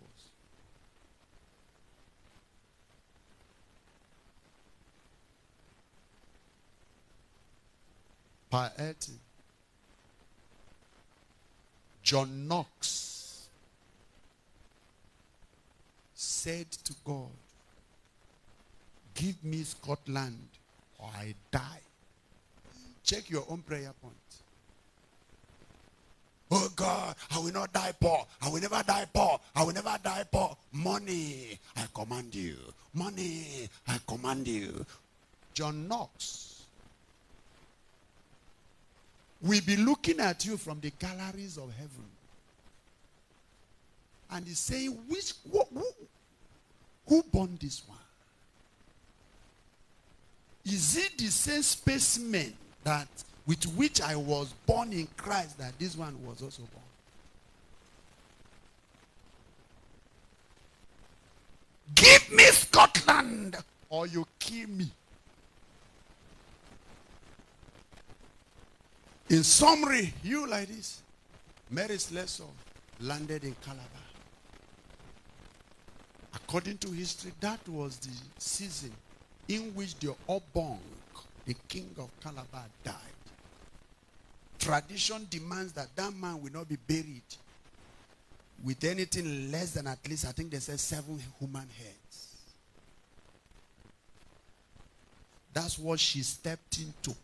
Piety John Knox said to God, Give me Scotland or I die. Check your own prayer point. Oh God, I will not die poor. I will never die poor. I will never die poor. Money, I command you. Money, I command you. John Knox will be looking at you from the galleries of heaven. And he's saying, which, who, who, who born this one? Is it the same specimen that with which I was born in Christ that this one was also born? Give me Scotland or you kill me. In summary, you like this. Mary's lesson landed in Calabar. According to history, that was the season in which the Obong, the king of Calabar, died. Tradition demands that that man will not be buried with anything less than at least, I think they said seven human heads. That's what she stepped into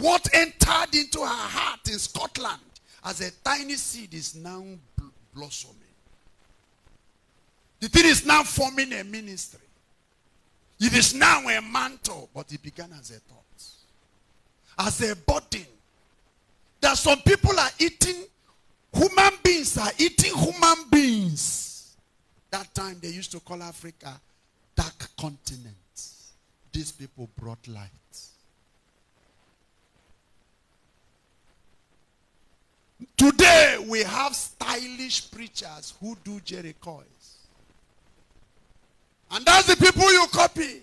what entered into her heart in Scotland as a tiny seed is now bl blossoming. The thing is now forming a ministry. It is now a mantle, but it began as a thought, as a burden. That some people are eating, human beings are eating human beings. That time they used to call Africa dark continent. These people brought light. Today we have stylish preachers who do Jerry coils. And that's the people you copy.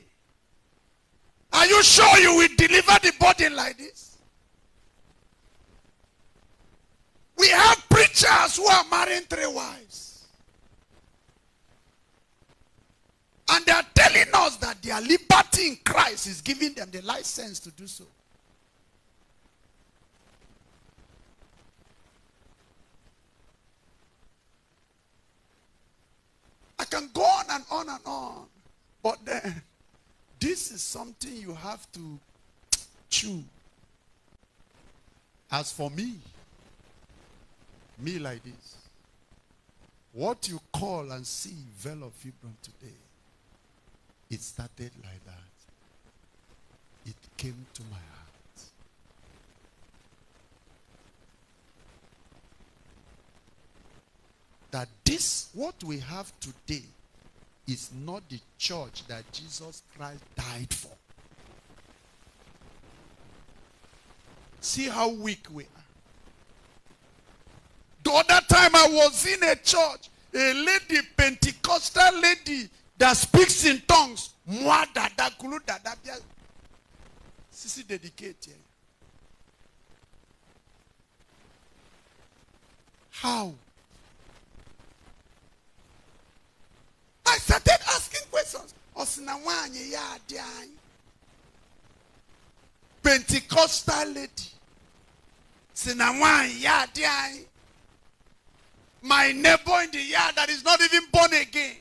Are you sure you will deliver the body like this? We have preachers who are marrying three wives. And they are telling us that their liberty in Christ is giving them the license to do so. I can go on and on and on. But then, this is something you have to chew. As for me, me like this, what you call and see Vale of today, it started like that. It came to my heart. that this, what we have today, is not the church that Jesus Christ died for. See how weak we are. The other time I was in a church, a lady, Pentecostal lady, that speaks in tongues. Mwa dada kulu dada bia. Sisi dedicated. How? started asking questions. Osinawanyi ya adiany. Pentecostal lady. Osinawanyi ya adiany. My neighbor in the yard that is not even born again.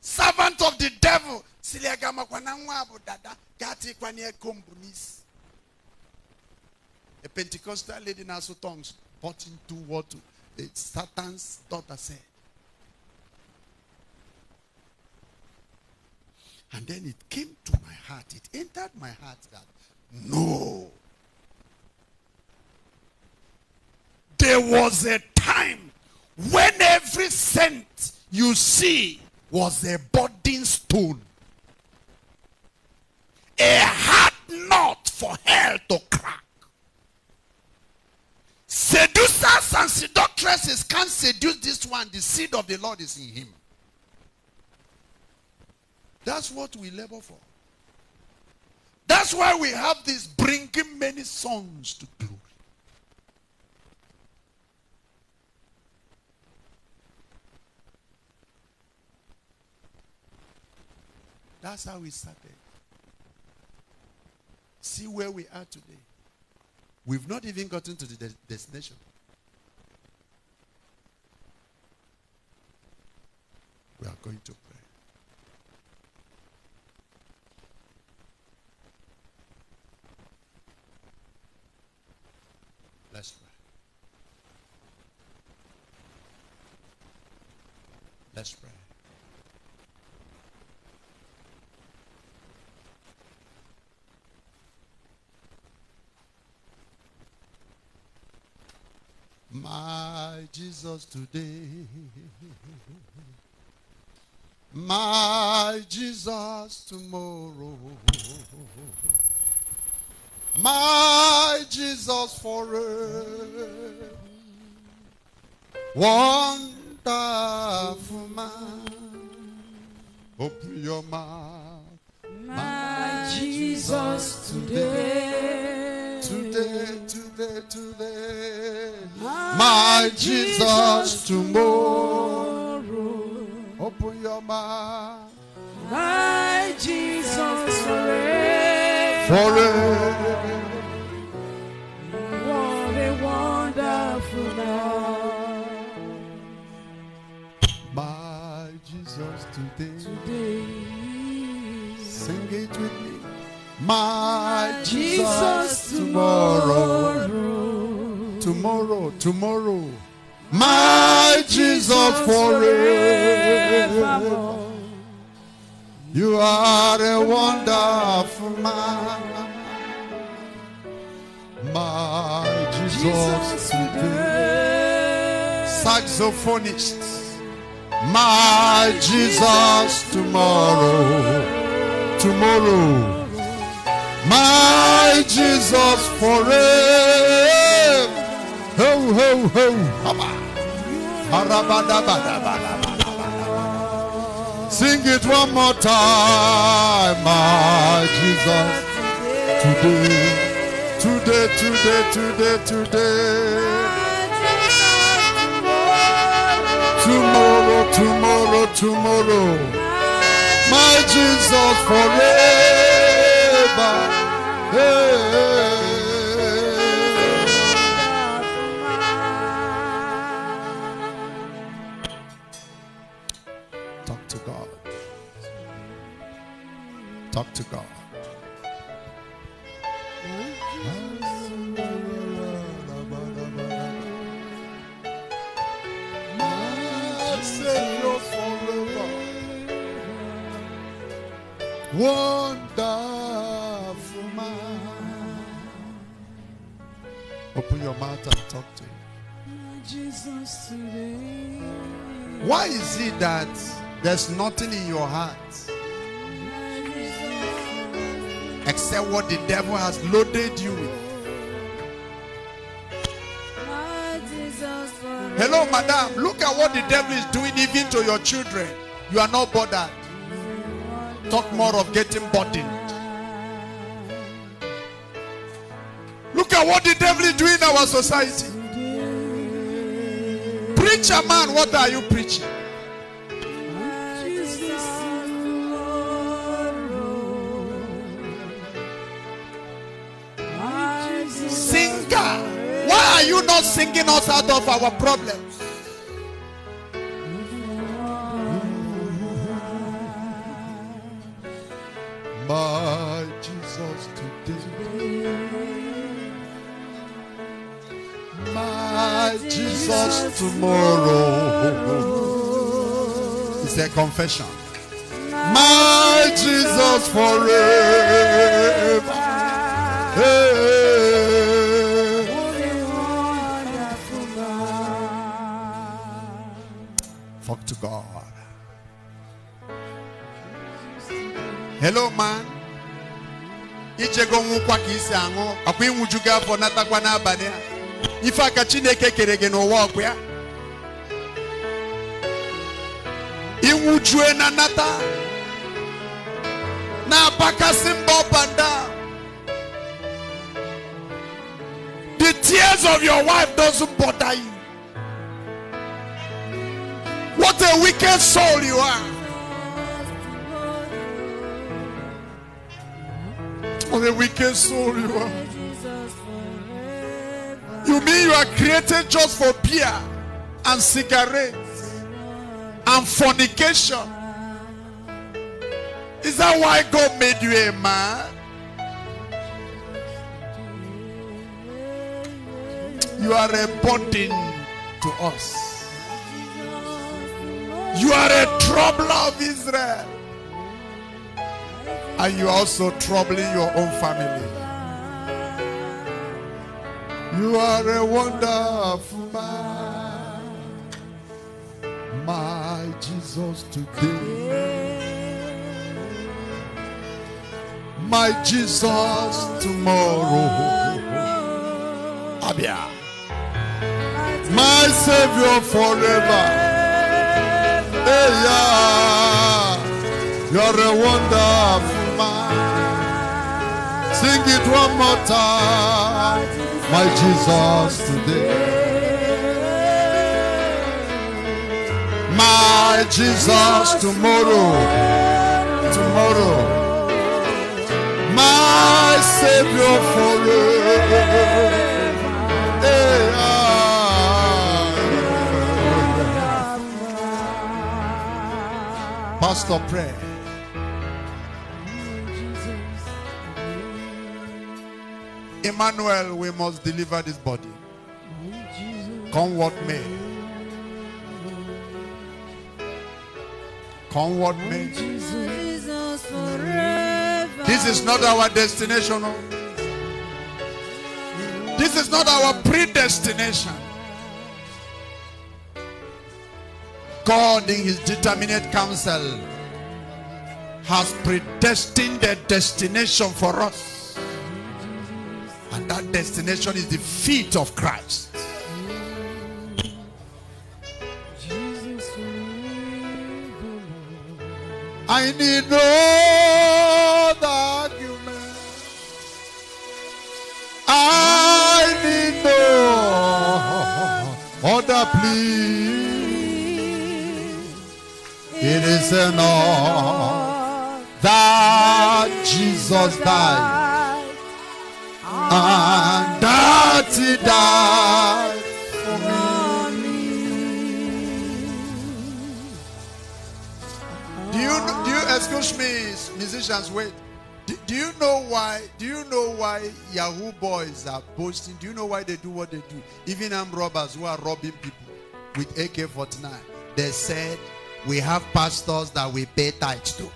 Servant of the devil. Siliagama kwananwabu dada. Gati kwanye kombunis. A Pentecostal lady in her tongues. Bought into what Satan's daughter said. And then it came to my heart, it entered my heart that no. There was a time when every cent you see was a budding stone, a hard knot for hell to crack. Seducers and seductresses can't seduce this one. The seed of the Lord is in him. That's what we labor for. That's why we have this bringing many sons to glory. That's how we started. See where we are today. We've not even gotten to the de- destination. We are going to Let's pray. Let's pray. My Jesus today. My Jesus tomorrow my Jesus forever. Wonderful man, open your mouth. My, Jesus today. Today, today, today. My, Jesus tomorrow. tomorrow. Open your mouth. My Jesus forever forever. What a wonderful love. My Jesus, today, today. sing it with me. My, Jesus, tomorrow, tomorrow, tomorrow. My Jesus forever. You are a wonderful man, my Jesus today. Saxophonist, my Jesus tomorrow, tomorrow, my Jesus forever. Ho ho ho, Baba. Sing it one more time, my Jesus. Today, today, today, today, today. Tomorrow, tomorrow, tomorrow. My Jesus forever. Hey. talk to God. Wonderful man. Open your mouth and talk to him. Why is it that there's nothing in your heart? except what the devil has loaded you with. Hello, madam. Look at what the devil is doing even to your children. You are not bothered. Talk more of getting burdened. Look at what the devil is doing in our society. Preacher man, what are you preaching? not singing us out of our problems. My Jesus today. My Jesus tomorrow. It's a confession. My Jesus forever. Hey. talk to God. Hello, man. Ichego nwụkwa ka isi aṅụ ọkwa ịnwụju gị afọ natakwa Ifa a ife aka Chineke kere gị n'ụwa ọkwa ya ịnwụjue na nata na-apakasị mba ọbanda the tears of your wife doesn't bother you what a wicked soul you are. What a wicked soul you are. You mean you are created just for beer and cigarettes and fornication? Is that why God made you a man? You are a burden to us. You are a troubler of Israel. And you are also troubling your own family. You are a wonderful man, my Jesus today, my Jesus tomorrow, Abia, my Savior forever yeah. You're a wonderful man. Sing it one more time. My Jesus today. My Jesus tomorrow. Tomorrow. My Savior forever. Must of prayer. Emmanuel, we must deliver this body. Come what may. Come what may. This is not our destination. Oh. This is not our predestination. God in his determinate counsel has predestined a destination for us. And that destination is the feet of Christ. I need no argument. I need no other plea is enough that Jesus died and that he died for me. Do you, do you excuse me, musicians? Wait. Do, do you know why? Do you know why Yahoo boys are boasting? Do you know why they do what they do? Even armed robbers who are robbing people with AK-49, they said we have pastors that we pay tithes to.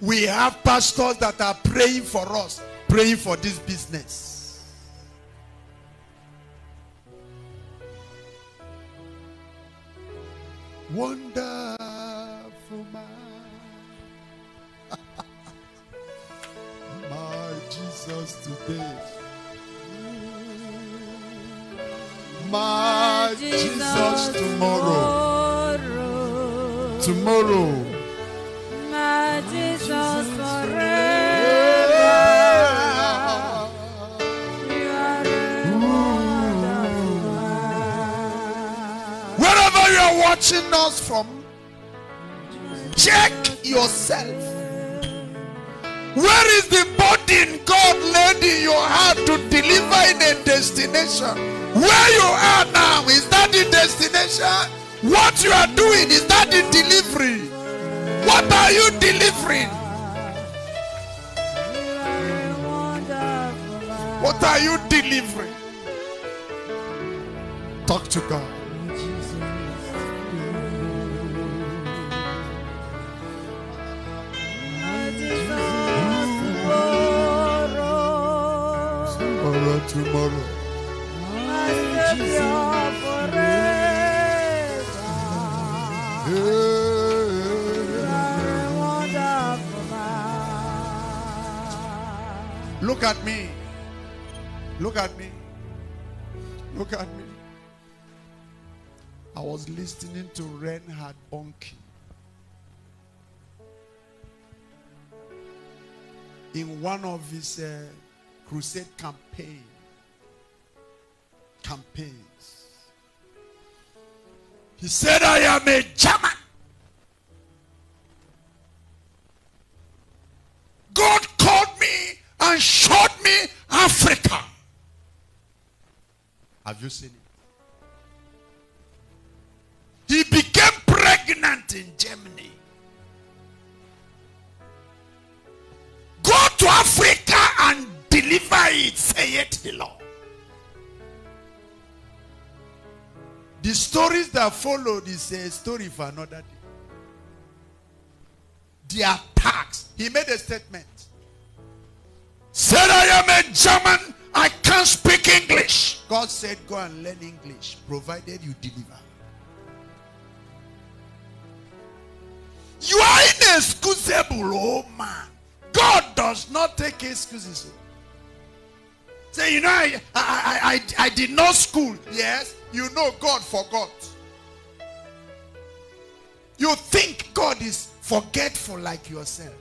We have pastors that are praying for us, praying for this business. Wonderful man. My Jesus today. my Jesus tomorrow. Tomorrow. My Jesus forever. Wherever you are watching us from, check yourself. Where is the burden God laid in your heart to deliver in a destination? Where you are now, is that the destination? What you are doing, is that the delivery? What are you delivering? What are you delivering? Talk to God. tomorrow. Look at me. Look at me. Look at me. I was listening to Reinhard Bonke. In one of his uh, crusade campaigns, campaigns. He said, I am a German. God called me and showed me Africa. Have you seen it? He became pregnant in Germany. Go to Africa and deliver it, saith the Lord. The stories that followed is a story for another day. The attacks. He made a statement. Said, I am a German. I can't speak English. God said, go and learn English, provided you deliver. You are inexcusable, oh man. God does not take excuses. Say, you know, I, I, I, I, I did not school. Yes you know God forgot. You think God is forgetful like yourself.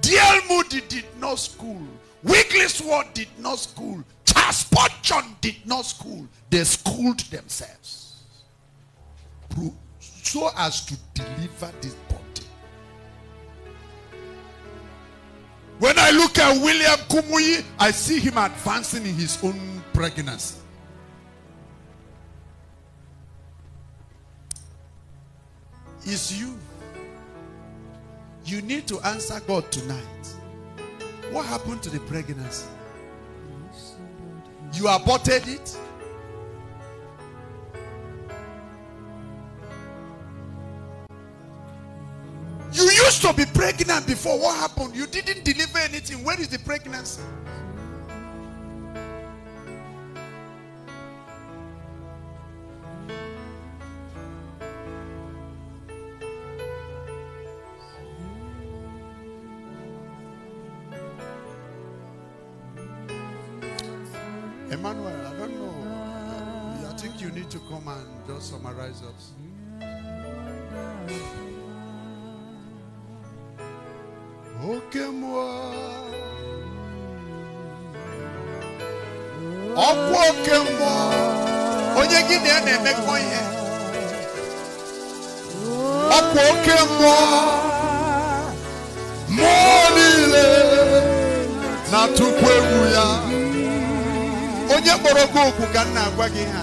D.L. Moody did not school. Wigglesworth did not school. Charles Spurgeon did not school. They schooled themselves so as to deliver this body. When I look at William Kumuyi, I see him advancing in his own pregnancy. Is you. You need to answer God tonight. What happened to the pregnancy? You aborted it. You used to be pregnant before. What happened? You didn't deliver anything. Where is the pregnancy? summarize us. Oke mmụọ ọkwa oke mmụọ onye gị na ya na-emekọ ihe ọkwa oke mmụọ mmụọ niile na-atụkwu egwu ya onye kpọrọ gị okwu ka m na-agwa gị ha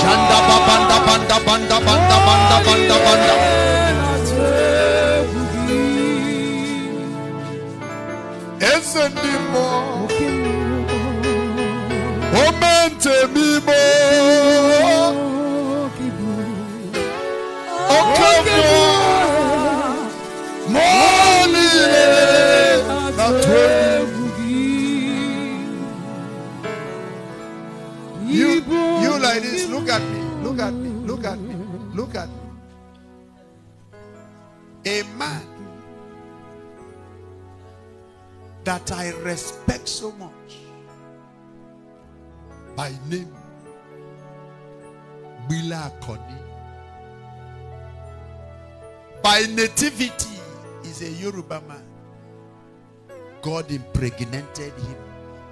Shanda banda banda banda A man that I respect so much by name Bila Koni. By nativity is a Yoruba man. God impregnated him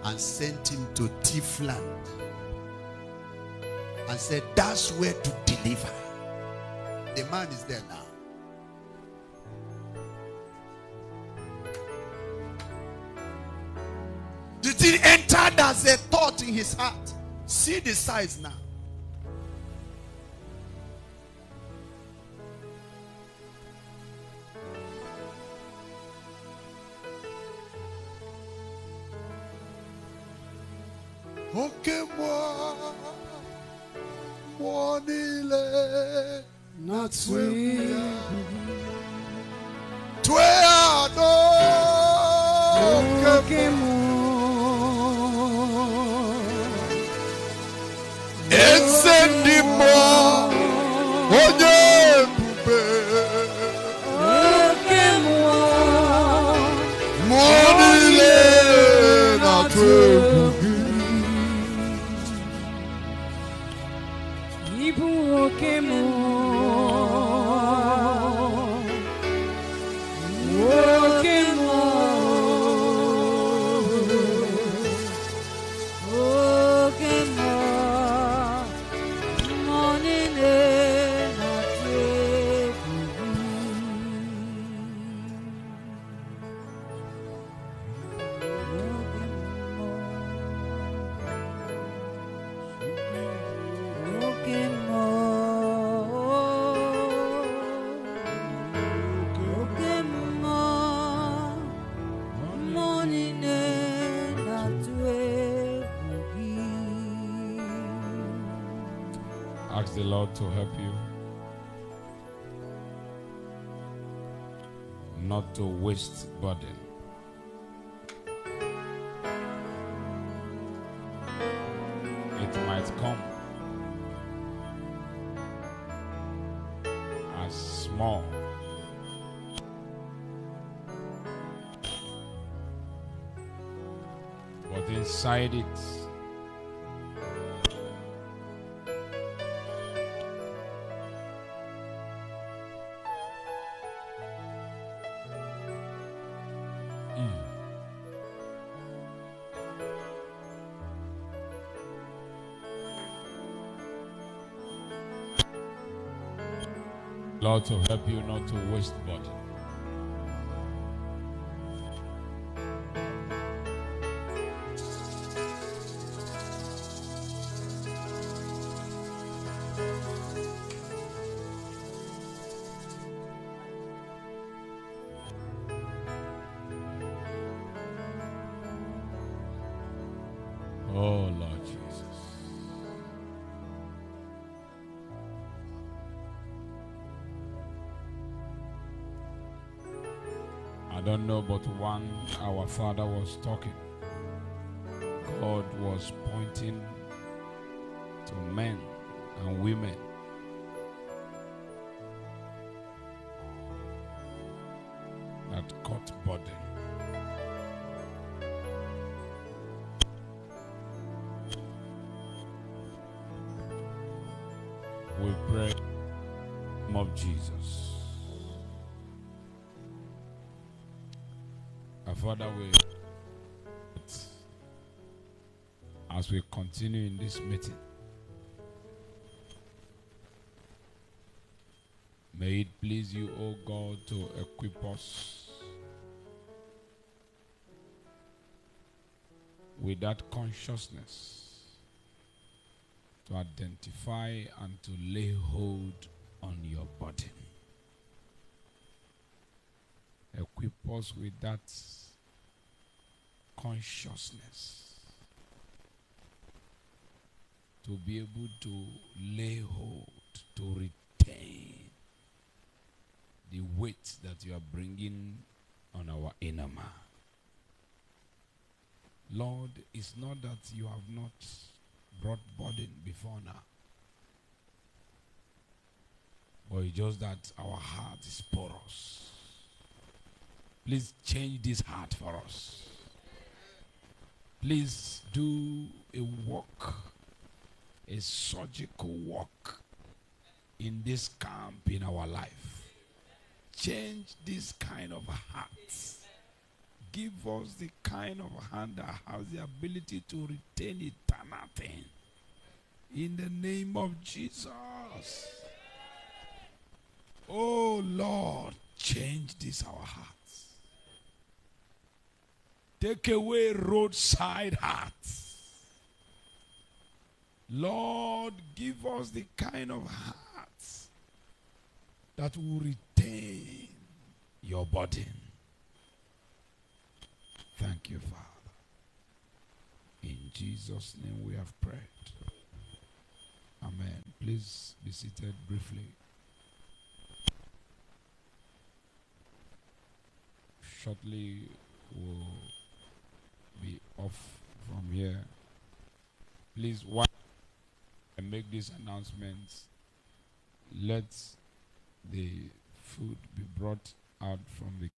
and sent him to Tifland and said, That's where to deliver. The man is there now. The thing entered as a thought in his heart. See the size now. Okay, moi, moi, il est not sweet. Tu es à nous, que moi. encendis-moi, oh God to help you not to waste burden. It might come as small but inside it to help you not to waste body. father was talking, God was pointing to men and women Our Father, we, as we continue in this meeting, may it please you, O God, to equip us with that consciousness to identify and to lay hold on your body. equip us with that consciousness to be able to lay hold, to retain the weight that you are bringing on our inner man. Lord, it's not that you have not brought burden before now. Or it's just that our heart is porous. Please change this heart for us. Please do a work, a surgical work in this camp in our life. Change this kind of hearts. Give us the kind of hand that has the ability to retain eternity. In the name of Jesus. Oh Lord, change this our heart. Take away roadside hearts. Lord, give us the kind of hearts that will retain your burden. Thank you, Father. In Jesus' name we have prayed. Amen. Please be seated briefly. Shortly, we'll off from here. Please, one and make these announcements. Let the food be brought out from the